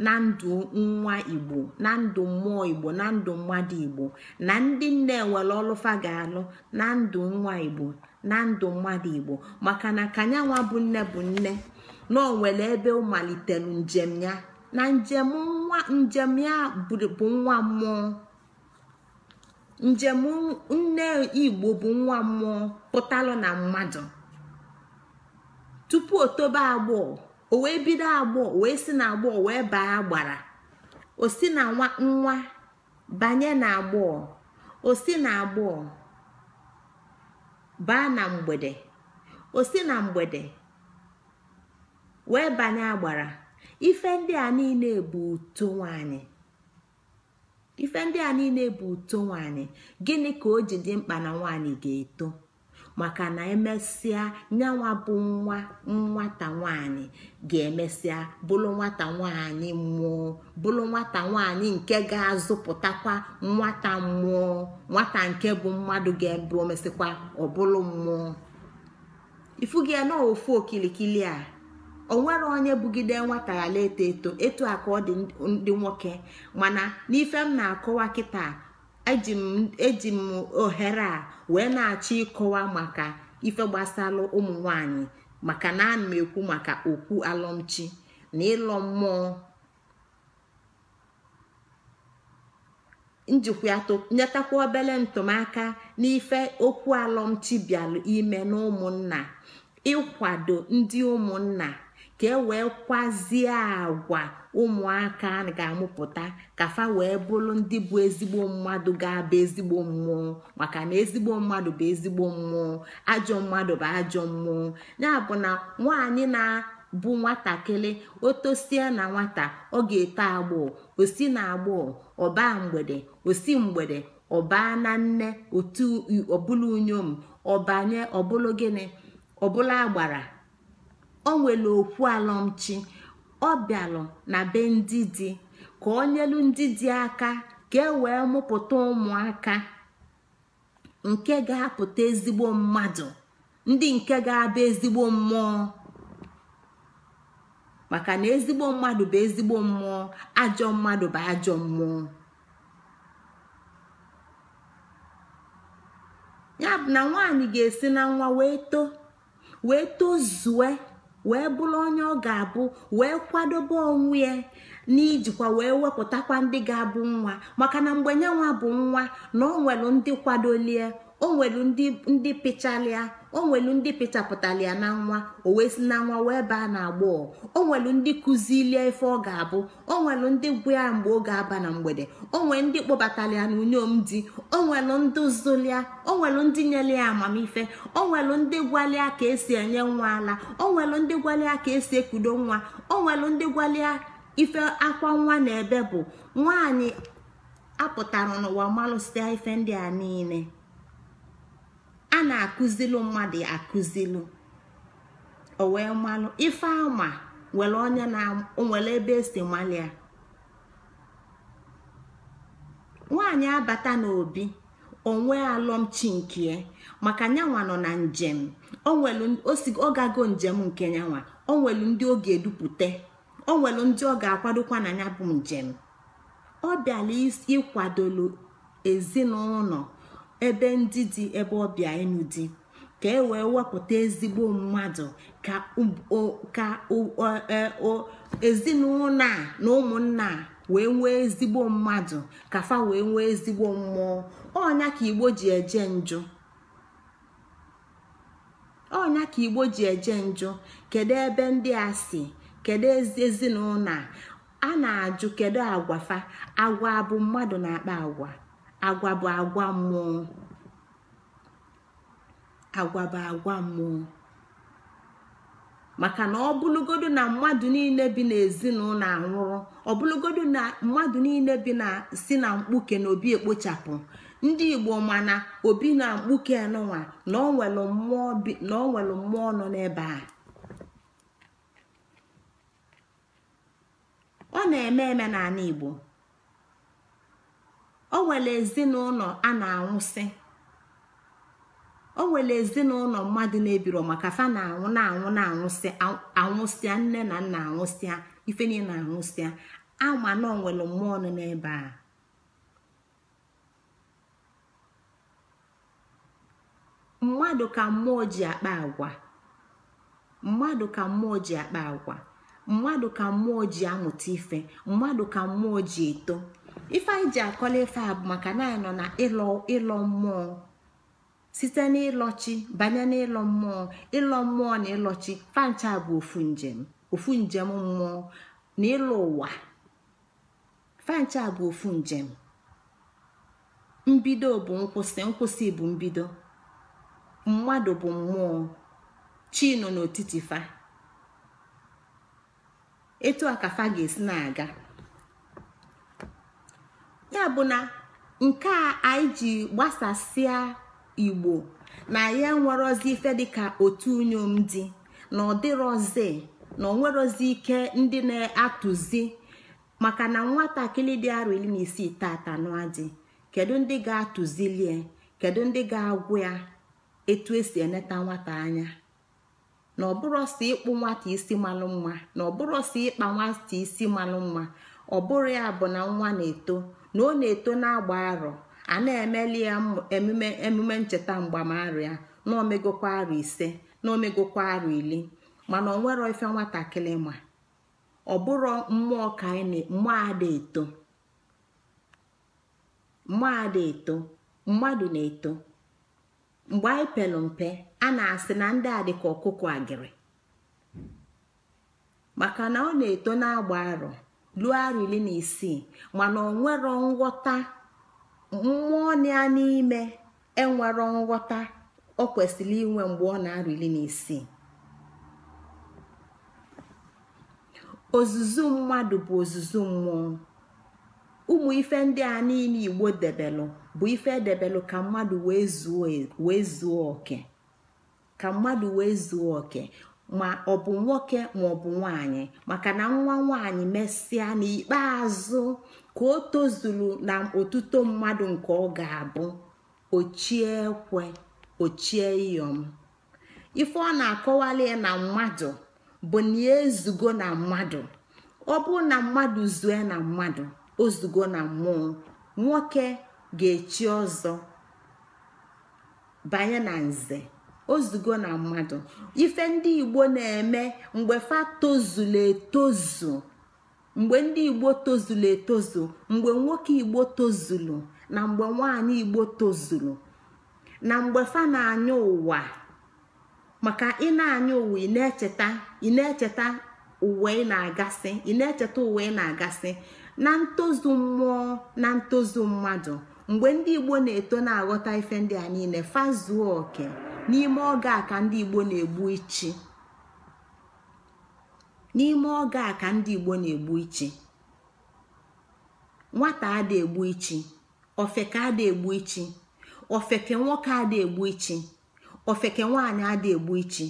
na ndụ nwa igbo na ndụ mmụọ igbo na ndụ mmadụ igbo na ndị nne nwere ọlụfa ga-alụ na ndụ nwa igbo na ndụ mmadụ igbo maka na kanyanwa bụ nne bụ nne na onwere ebe ọ malitere njem ya na njem nwa njem ya bụ nwa mmụọ njem nne igbo bụ nwa mmụọ pụtalụ na mmadụ tupu o tobe agbọọ o wee bido agbọọ wee si na agbọọ wee baa agbara o si na nwa banye na agbọọ o si na agbọọ baa na mgbede o si na mgbede wee banye agbara ife ndị a niile bụ uto nwanyị ife ndị a niile bụ uto nwanyị gịnị ka o ji dị mkpa na nwanyị ga-eto maka na emesịa nyanwa bụ nwa nwata nwanyị ga-emesịa bụrụ nwata nwanyị mmụọ bụrụ nwata nwanyị nke ga-azụpụtakwa nwata mmụọ nwata nke bụ mmadụ ga-ebu omesịkwa ọbụlụ mmụọ ifu gị na ofu okilikili a onwere onye bugide nwata ghara eto eto etu a ka ọ dị ndị nwoke mana n'ife m na-akọwa kịta eji m ohere a wee na-achọ ịkọwa maka ife gbasalụ ụmụ nwanyị maka na ana m ekwu maka okwu alụmchi na ịlọ mmụọ njikwa obele ntụmaka n'ife okwu alụmchi bịalụ ime n'ụmụnna ịkwado ndị ụmụnna ka e wee kwazie agwa ụmụaka ga-amụpụta ka fa wee bụrụ ndị bụ ezigbo mmadụ ga-abụ ezigbo mmụọ maka na ezigbo mmadụ bụ ezigbo mmụọ ajọ mmadụ bụ ajọ mmụọ ya bụ na nwaanyị na-abụ nwatakịrị otosie na nwata ọ ga-eto agbọọ osi na agbọọ ọbaa mgbede osi mgbede ọbaa na nne otu ọbụla unyom ọbanye ọbụla gịnị ọbụla agbara o nwere okwu alọmchi ọ bịalụ na be ndị dị ka ọ nyelu ndị dị aka ka e wee mụpụta ụmụaka nke ga-apụta ezigbo mmadụ ndị nke ga-abụ ezigbo mmụọ maka na ezigbo mmadụ bụ ezigbo mmụọ ajọ mmadụ bụ ajọ mmụọ ya bụ na nwaanyị ga-esi na nwa wee too wee wee bụrụ onye ọ ga-abụ wee kwadobe onwe ya n'ijikwa wee wepụtakwa ndị ga-abụ nwa maka na mgbe nyenwa bụ nwa na ọ nwere ndị kwadolie o nwelu ndị pịchalịa o ndị ya na nwa o wee si na nwa wee baa na agbọ o nwelu ndị kụzilie ife ọ ga-abụ o nwelu ndị gwụ ya mgbe ọ ga-aba na mgbede o nwee ndị kpọbatara ya n'unyom di o nwelu ndị zụlịa o ndị nyere ya amamife onwelu nwelu ndị gwalia ka esi enye nwa ala o nwelu ndị gwalia ka esi ekudo nwa o nwelu ndị gwalia ife akwa nwa na ebe bụ nwaanyị apụtara n'ụwa malụsịa ife ndị a niile a na akuzilu mmadụ akụzilu ọ wee ife ama nwere onye na nwere ebe esi malia nwaanyị abata n'obi onwe alọmchi nke maka nyanwa nọ na njem ọ gago njem nke nyanwa o nwelu ndị ọ ga-edupụta o nwelu ndị ọ ga-akwadokwa na ya bụ njem ọ bịala ịkwadolu ezinụlọ ebe ndị dị ebe ọbịa enu dị ka e wee wepụta ezigbo mmadụ ka e, ezinụlọ a na ụmụnna wee nwee ezigbo mmadụ ka fa wee nwee ezigbo mmụọ ọnya ka igbo ji eje njo ọnya ka igbo ji eje njọ kedu ebe ndị a si kedu ezinụlọ a na-ajụ kedu agwa fa agwa abụ mmadụ na-akpa agwa agwa bụ agwa mmụọ agwa bụ agwa mmụọ maka na ọ ọbụlụgodu na mmadụ niile bi n'ezinụlọ anwụrụ ọbụlụgodu na mmadụ niile bi na si na mkpuke na obi ekpochapụ ndị igbo mana obi na mkpuke nụnwa na ọ nwere mmụọ nọ n'ebe a ọ na-eme eme n'ala igbo o nwere ezinụlọ a na-anwụsị o nwere ezinụlọ mmadụ na-ebiro maka fa na-anwụ na-anwụ na-anwụsị anwụsịa nne na nna anwụsịa ife niile anwụsịa ama na onwere mmụọ nọ n'ebe a mmadụ ka mmụọ ji akpa agwa mmadụ ka mmụọ ji akpa agwa mmadụ ka mmụọ ji amụta ife mmadụ ka mmụọ ji eto ife anyị ji akọla ife a maka na anyị nọ na ịlọ mmụọ site n'ịlọchi banye n'ịlọ mmụọ ịlọ mmụọ na ịlọchi fancha bụ ofu njem ofu njem mmụọ na ịlọ ụwa fancha bụ ofu njem mbido bụ nkwụsị nkwụsị bụ mbido mmadụ bụ mmụọ chi nọ n'etiti fa etu a ka fa ga-esi na-aga ya bụ na nke a anyị ji gbasasịa igbo na ya nwerozi ife dịka otu unyom dị na ọdịrozi na onwerozi ike ndị na-atụzi maka na nwatakịrị dị arọ iri na isii tata dị kedu ndị ga-atụzilie kedu ndị ga-agwụ ya etu esi eneta nwata anya na ọsọ ịkpụ nwata isi malụ mma na ọsọ ịkpa nwata isi malụ mma ọ bụrụ ya bụ na nwa na-eto na ọ na-eto na-agba arọ a na-emeli ya emume emume ncheta mgbamarụ ya na omegokwa arọ ise na omegokwa arọ ili mana ọ nwerọ ife nwatakịrị ma ọ bụrụ mmụọ ka anyị mmụọ ada eto mmụọ ada eto mmadụ na-eto mgbe anyị pelụ mpe a na-asị na ndị a dịka ọkụkọ agịrị maka na ọ na-eto na-agba arọ luo arọ na isii mana ọ nwero nghọta mmụọ ya n'ime enwero nghọta ọ kwesịrị inwe mgbe ọ na-arọ na isii ozuzu mmadụ bụ ozuzu mmụọ ụmụ ife ndị a niile igbo debelụ bụ ife edebelụ ka mmadụ e, wee zuo oke ka mmadụ wee zuo oke ma ọ bụ nwoke ma ọ bụ nwanyị maka na nwa nwanyị mesịa n'ikpeazụ ka o tozuru na otuto mmadụ nke ọ ga-abụ ochie ekwe ochie iyom ife ọ na-akọwali na mmadụ bụ na ya e ezugo na mmadụ ọ bụ na mmadụ zue na mmadụ ozugo na mmụọ nwoke ga-echi ọzọ banye na nze ozugo na mmadụ ife ndị igbo na-eme mgbe fa tozulu etozu mgbe ndị igbo tozulu etozu mgbe nwoke igbo tozulu na mgbe nwanyị igbo tozulu na mgbe fa na-anya ụwa maka ị na-anya ụwa ị na-echeta ị na-echeta ụwa ị na-agasị ị na-echeta uwe ị na-agasị na ntozu mmụọ na ntozu mmadụ mgbe ndị igbo na-eto na-aghọta ife ndị a niile fazuo oke. n'ime oge a ka ndị igbo na-egbu ichi n'ime oge a na-egbu ichi nwata ada egbu ichi ofeke egbu ichi ofeke nwoke ada egbu ichi ofeke nwanyị ada egbu ichi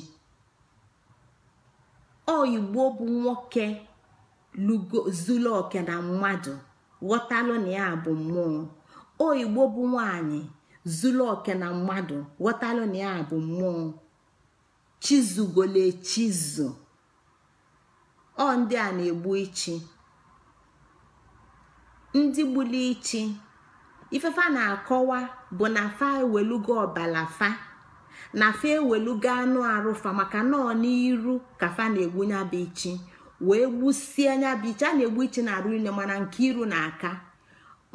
oyigbo igbo bụ nwoke zụlọ zuru oke na mmadụ ghọtalụ na ya bụ mmụọ o bụ nwaanyị zuru oke na mmadụ ghọtalụ na ya bụ mmụọ chizugole chizu ọ ndị a na-egbu ichi ndị gbuli ichi ifefa na-akọwa bụ na fa ewelugo ọbalafa, fa na fa ewelugo anụ arụfa maka nọọ n'iru ka fa na-egbu nyabụ ichi wee gbusie nyabụ ichi a na-egbu ichi na arụ ile mana nke iru na aka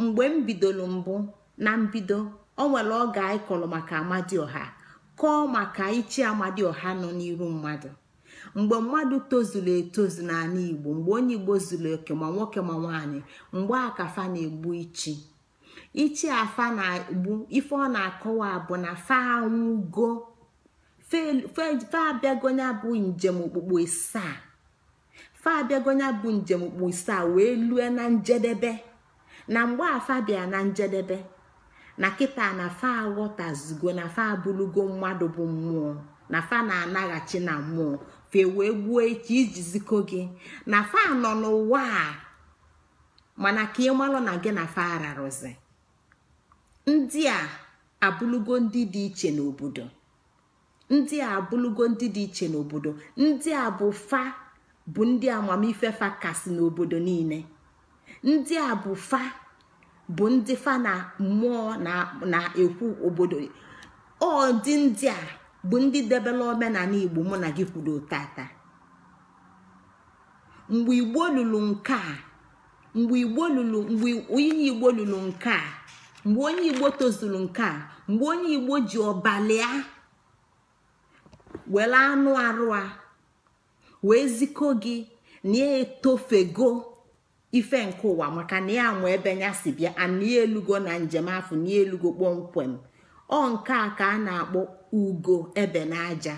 mgbe m bidoro mbụ na mbido o nwere oge anyị kọrọ maka amadioha kọọ maka ichi amadioha nọ n'iru mmadụ mgbe mmadụ tozuru etozu n'ala igbo mgbe onye igbo zuru oke ma nwoke ma nwaanyị mgbe akafa na-egbu ichi ichi afa na-egbu ife ọ na-akọwa bụ na fa anwụgo fa abịagonya bụ njem okpukpu isaa fa abịagonya bụ njem okpukpu isaa wee lue na njedebe na mgbe afa bịa na njedebe na kịta na fa aghọtazigo na fa abụlugo mmadụ bụ mmụọ na fa na-anaghachi na mmụọ fe wee gbuo echi ziko gị na fa nọ n'ụwa a mana ka ị malụ na gị na fa ararụzi ndị a abụlugo ndị dị iche n'obodo ndị a abụlugo ndị dị iche n'obodo ndị a bụ fa bụ ndị amamife fa kasị n'obodo niile ndị a bụ fa bụ ndị fa na mmụọ na-ekwu obodo ọ dị ndị a bụ ndị debela omenala igbo mụ na gị kwuru tata mgbe igbo lụrụ nke a mgbe igbo lụrụ mgbe onye igbo nke a mgbe onye igbo tozuru nke a mgbe onye igbo ji ọbalịa were anụ arụ a wee ziko gị na etofego ife nke ụwa maka na ya anwụ ebe ya si bịa ana elugo na njem afọ n'elugo kpọmkwem ọ nke a ka a na-akpọ ugo ebe n'aja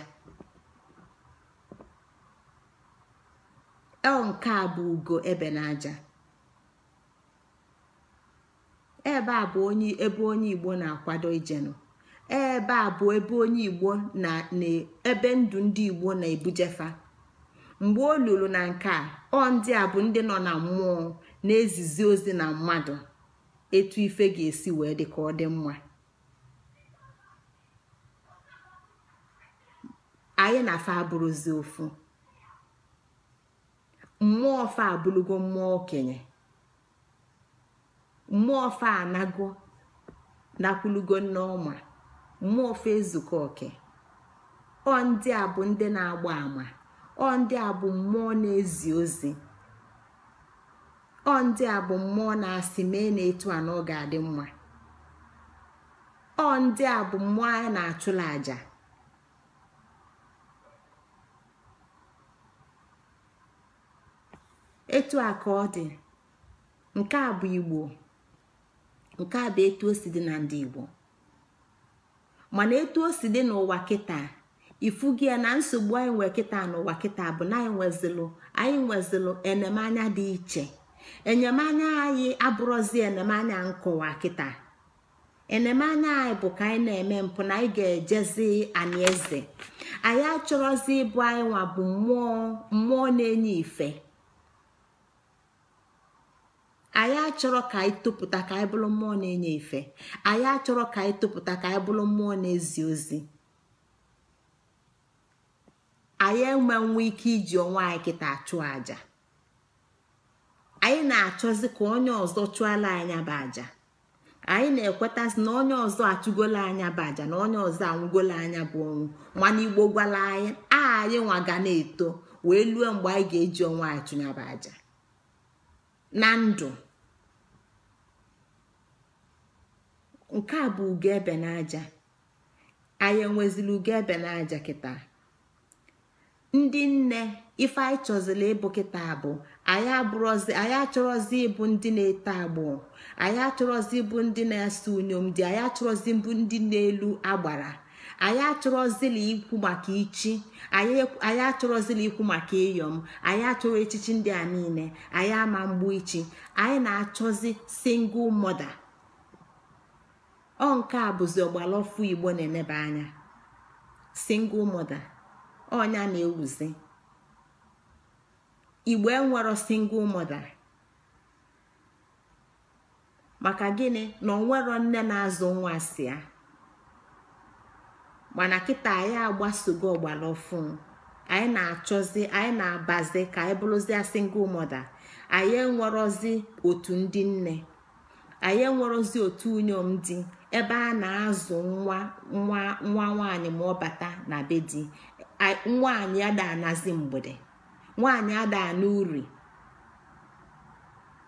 ọ nke a bụ ugo ebe n'aja ebe a bụ onye ebe onye igbo na-akwado ijenụ ebe a bụ ebe onye igbo na ebe ndụ ndị igbo na-ebujefa mgbe o luru na nke a ọ ndị a bụ ndị nọ na mmụọ na-ezizi ozi na mmadụ etu ife ga-esi wee dị ka ọ dị mma anyị na afọ abụrụzi ofu mmụọ fa abụrụgo mmụọ okenye mmụọ fa anago nakwulugo ọma, mmụọ fa ezuko oke ọ ndị a bụ ndị na-agba ama ọ ndị a bụ mmụọ na-ezi ozi ọ ndị a bụ mmụọ na-asị mee na etu a na ga-adị mma ọ ndị a bụ mmụọ anyị na-achụla àjà etu a ka ọ dị nke a bụ igbo nke a bụ etu o si dị na ndị igbo mana etu o si dị n'ụwa kịta ifugi ya na nsogbu anyị nwee kịta n'ụwa kịta bụ na anyị nwezilụ anyị nwezilụ enyemanya dị iche enyemanya anyị abụrụzi enyemanya nkụwa kịta enyemanya anyị bụ ka anyị na-eme mpụ na anyị ga-ejezi anaeze anyị achọrọzi ịbụ anyị nwa bụ mmụọ mmụọ na-enye ife anyị achọrọ ka anyị topụta ka anyị bụrụ mmụọ na-enye ife anyị achọrọ ka anyị topụta ka anyị bụrụ mmụọ na-ezi ozi anyị enwenwu ike iji onwe anyị kịta achụ aja anyị na-achọzi ka onye ọzọ chụọla anya bụ aja anyị na-ekwetazi na onye ọzọ achụgola anya bụ aja na onye ọzọ anwụgola anya bụ ọnwụ mana igbo gwala anyị anyị nwa ga na-eto wee lue mgbe anyị ga-eji onwe anyị chụnyaba aja na ndụ nke a bụ ugo n'aja anyị enwezili ugo ebe n'aja kịta ndị nne ife anyị chọzila ịbụ kịta bụ anyị abụrọzi anyị achọrọzi ịbụ ndị na-eto agbụ anyị achọrọzi ịbụ ndị na-asa unyom dị anyị achọrọzi bụ ndị na-elu agbara anyị achọrọzila ikwu maka ichi anyị achọrọzila ikwu maka ịyọm anyị achọrọ echichi ndị a niile anyị ama mgbu ichi anyị na-achọzi single mother ọ nke a bụzi ọgbalaọfụ igbo na-eneba anya single mother. onya na-ewuzi igbo enwero single mother maka gini na onwero nne na-azụ nwa si ya mana kita anyị agbasogo ọgbara ọfụ anyị na abazi ka anyị bụrụzie single mother anyị enwerozi otu ndị nne anyị enwerozi otu unyom di ebe a na-azụ nwa nwa nwa nwaanyị ma ọ bata na be di nwaanyị ada anazi mgbede nwaanyị ada ana uri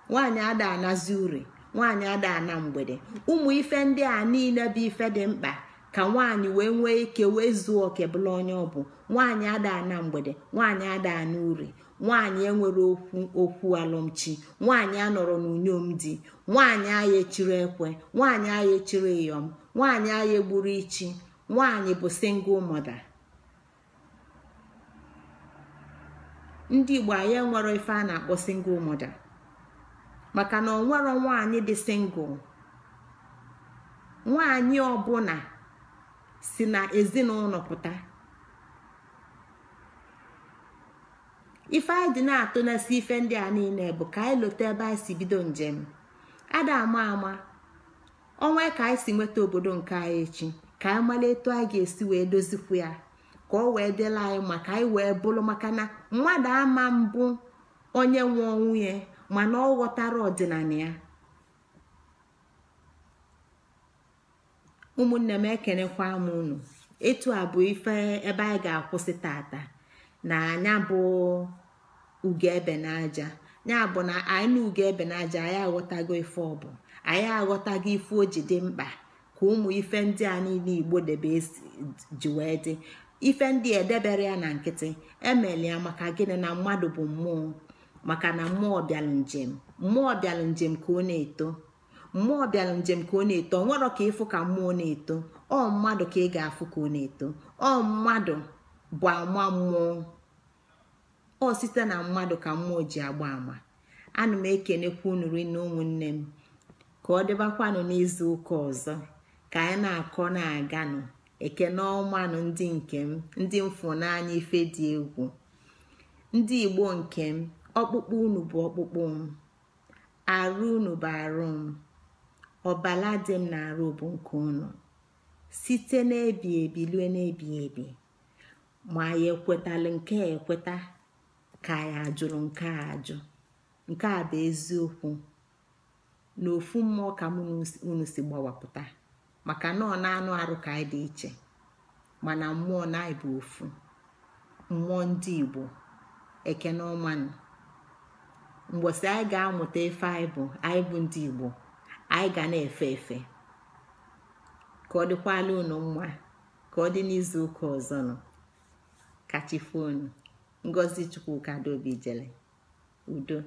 nwaanyị uri nwaanyị ada ana mgbede ụmụ ife ndị a niile bụ ife dị mkpa ka nwaanyị wee nwee ike wee zuo oke bụla onye ọ bụ nwaanyị ada ana mgbede nwaanyị ada na uri nwaanyị enwere okwu okwu alụmchi nwaanyị anọrọ n'unyom di nwaanyị agha echiri ekwe nwaanyị agha echiri ịyọm nwaanyị agha egburu ichi nwaanyị bụ single mother ndị igbo anyị nwere ife a na-akpọ single mother maka na onwero nwaanyị dị single nwaanyị ọbụla si na ezinụlọ pụta ife anyị dị na na-esi atụ ife ndị a niile bụ ka anyị lote ebe anyị si bido njem ada ama ama ọnwa ka anyị si nweta obodo nke anyị echi ka anyị mara etu anyị ga-esi wee dozikwu ya ka ọ wee dịla anyị maka anyị wee bụrụ maka na mmadụ ama mbụ onye nwe nwunye ya mana ọ ghọtara ọdịnala ya ụmụnne m ekenekwa m unu etu a bụ ife ebe anyị ga-akwụsị tata na anya bụ ugo ebe n'aja ya bụ na anyị na ugo ebe n'aja anyị aghọtago ife ọbụ anyị aghọtago ife o ji dị mkpa ka ụmụ ife ndị a niile igbo debe ji wee dị ife ndị edebere ya na nkịtị emeli ya maka gịnị na mmadụ bụ mmụọ maka na mmụọ bịalụ njem mmụọ bịalụ njem ka ọ na-eto mmụọ bịalụ njem ka ọ na-eto ọ nwerọ ka ịfụ ka mmụọ na-eto ọ mmadụ ka ị ga-afụ ka ọ na-eto ọ mmadụ bụ ama mmụọ ọ site na mmadụ ka mmụọ ji agba ama ana m ekenekwa unu rinne ụmụnne m ka ọ dịbakwanụ n'izu ụka ọzọ ka anyị na-akọ na-aganụ ekene ọmanụ ndị nke m ndị mfụnanya ife dị egwu ndị igbo nke m ọkpụkpụ unu bụ ọkpụkpụ m arụ unu bụ arụ m ọbala dị m na-arụ bụ nke unu site n'ebi ebi lue n'ebi ebi ma ya ekwetalụ nke a ekweta ka ya ajụrụ nke ajụ nke a bụ eziokwu na ofu mmụọ ka mụ unu si gbawapụta maka nọọ na-anụ arụ ka anyị dị iche mana mmụọ na anyị ofu mmụọ ndị igbo ekene ọmanụ mgbọsị anyị ga-amụta efe anyị bụ anyị bụ ndị igbo anyị ga na-efe efe ka ọ dịkwala unu mma ka ọ dị n'izu ụka ọzọ nọ kachifonu ngozi chukwu adaobi jele udo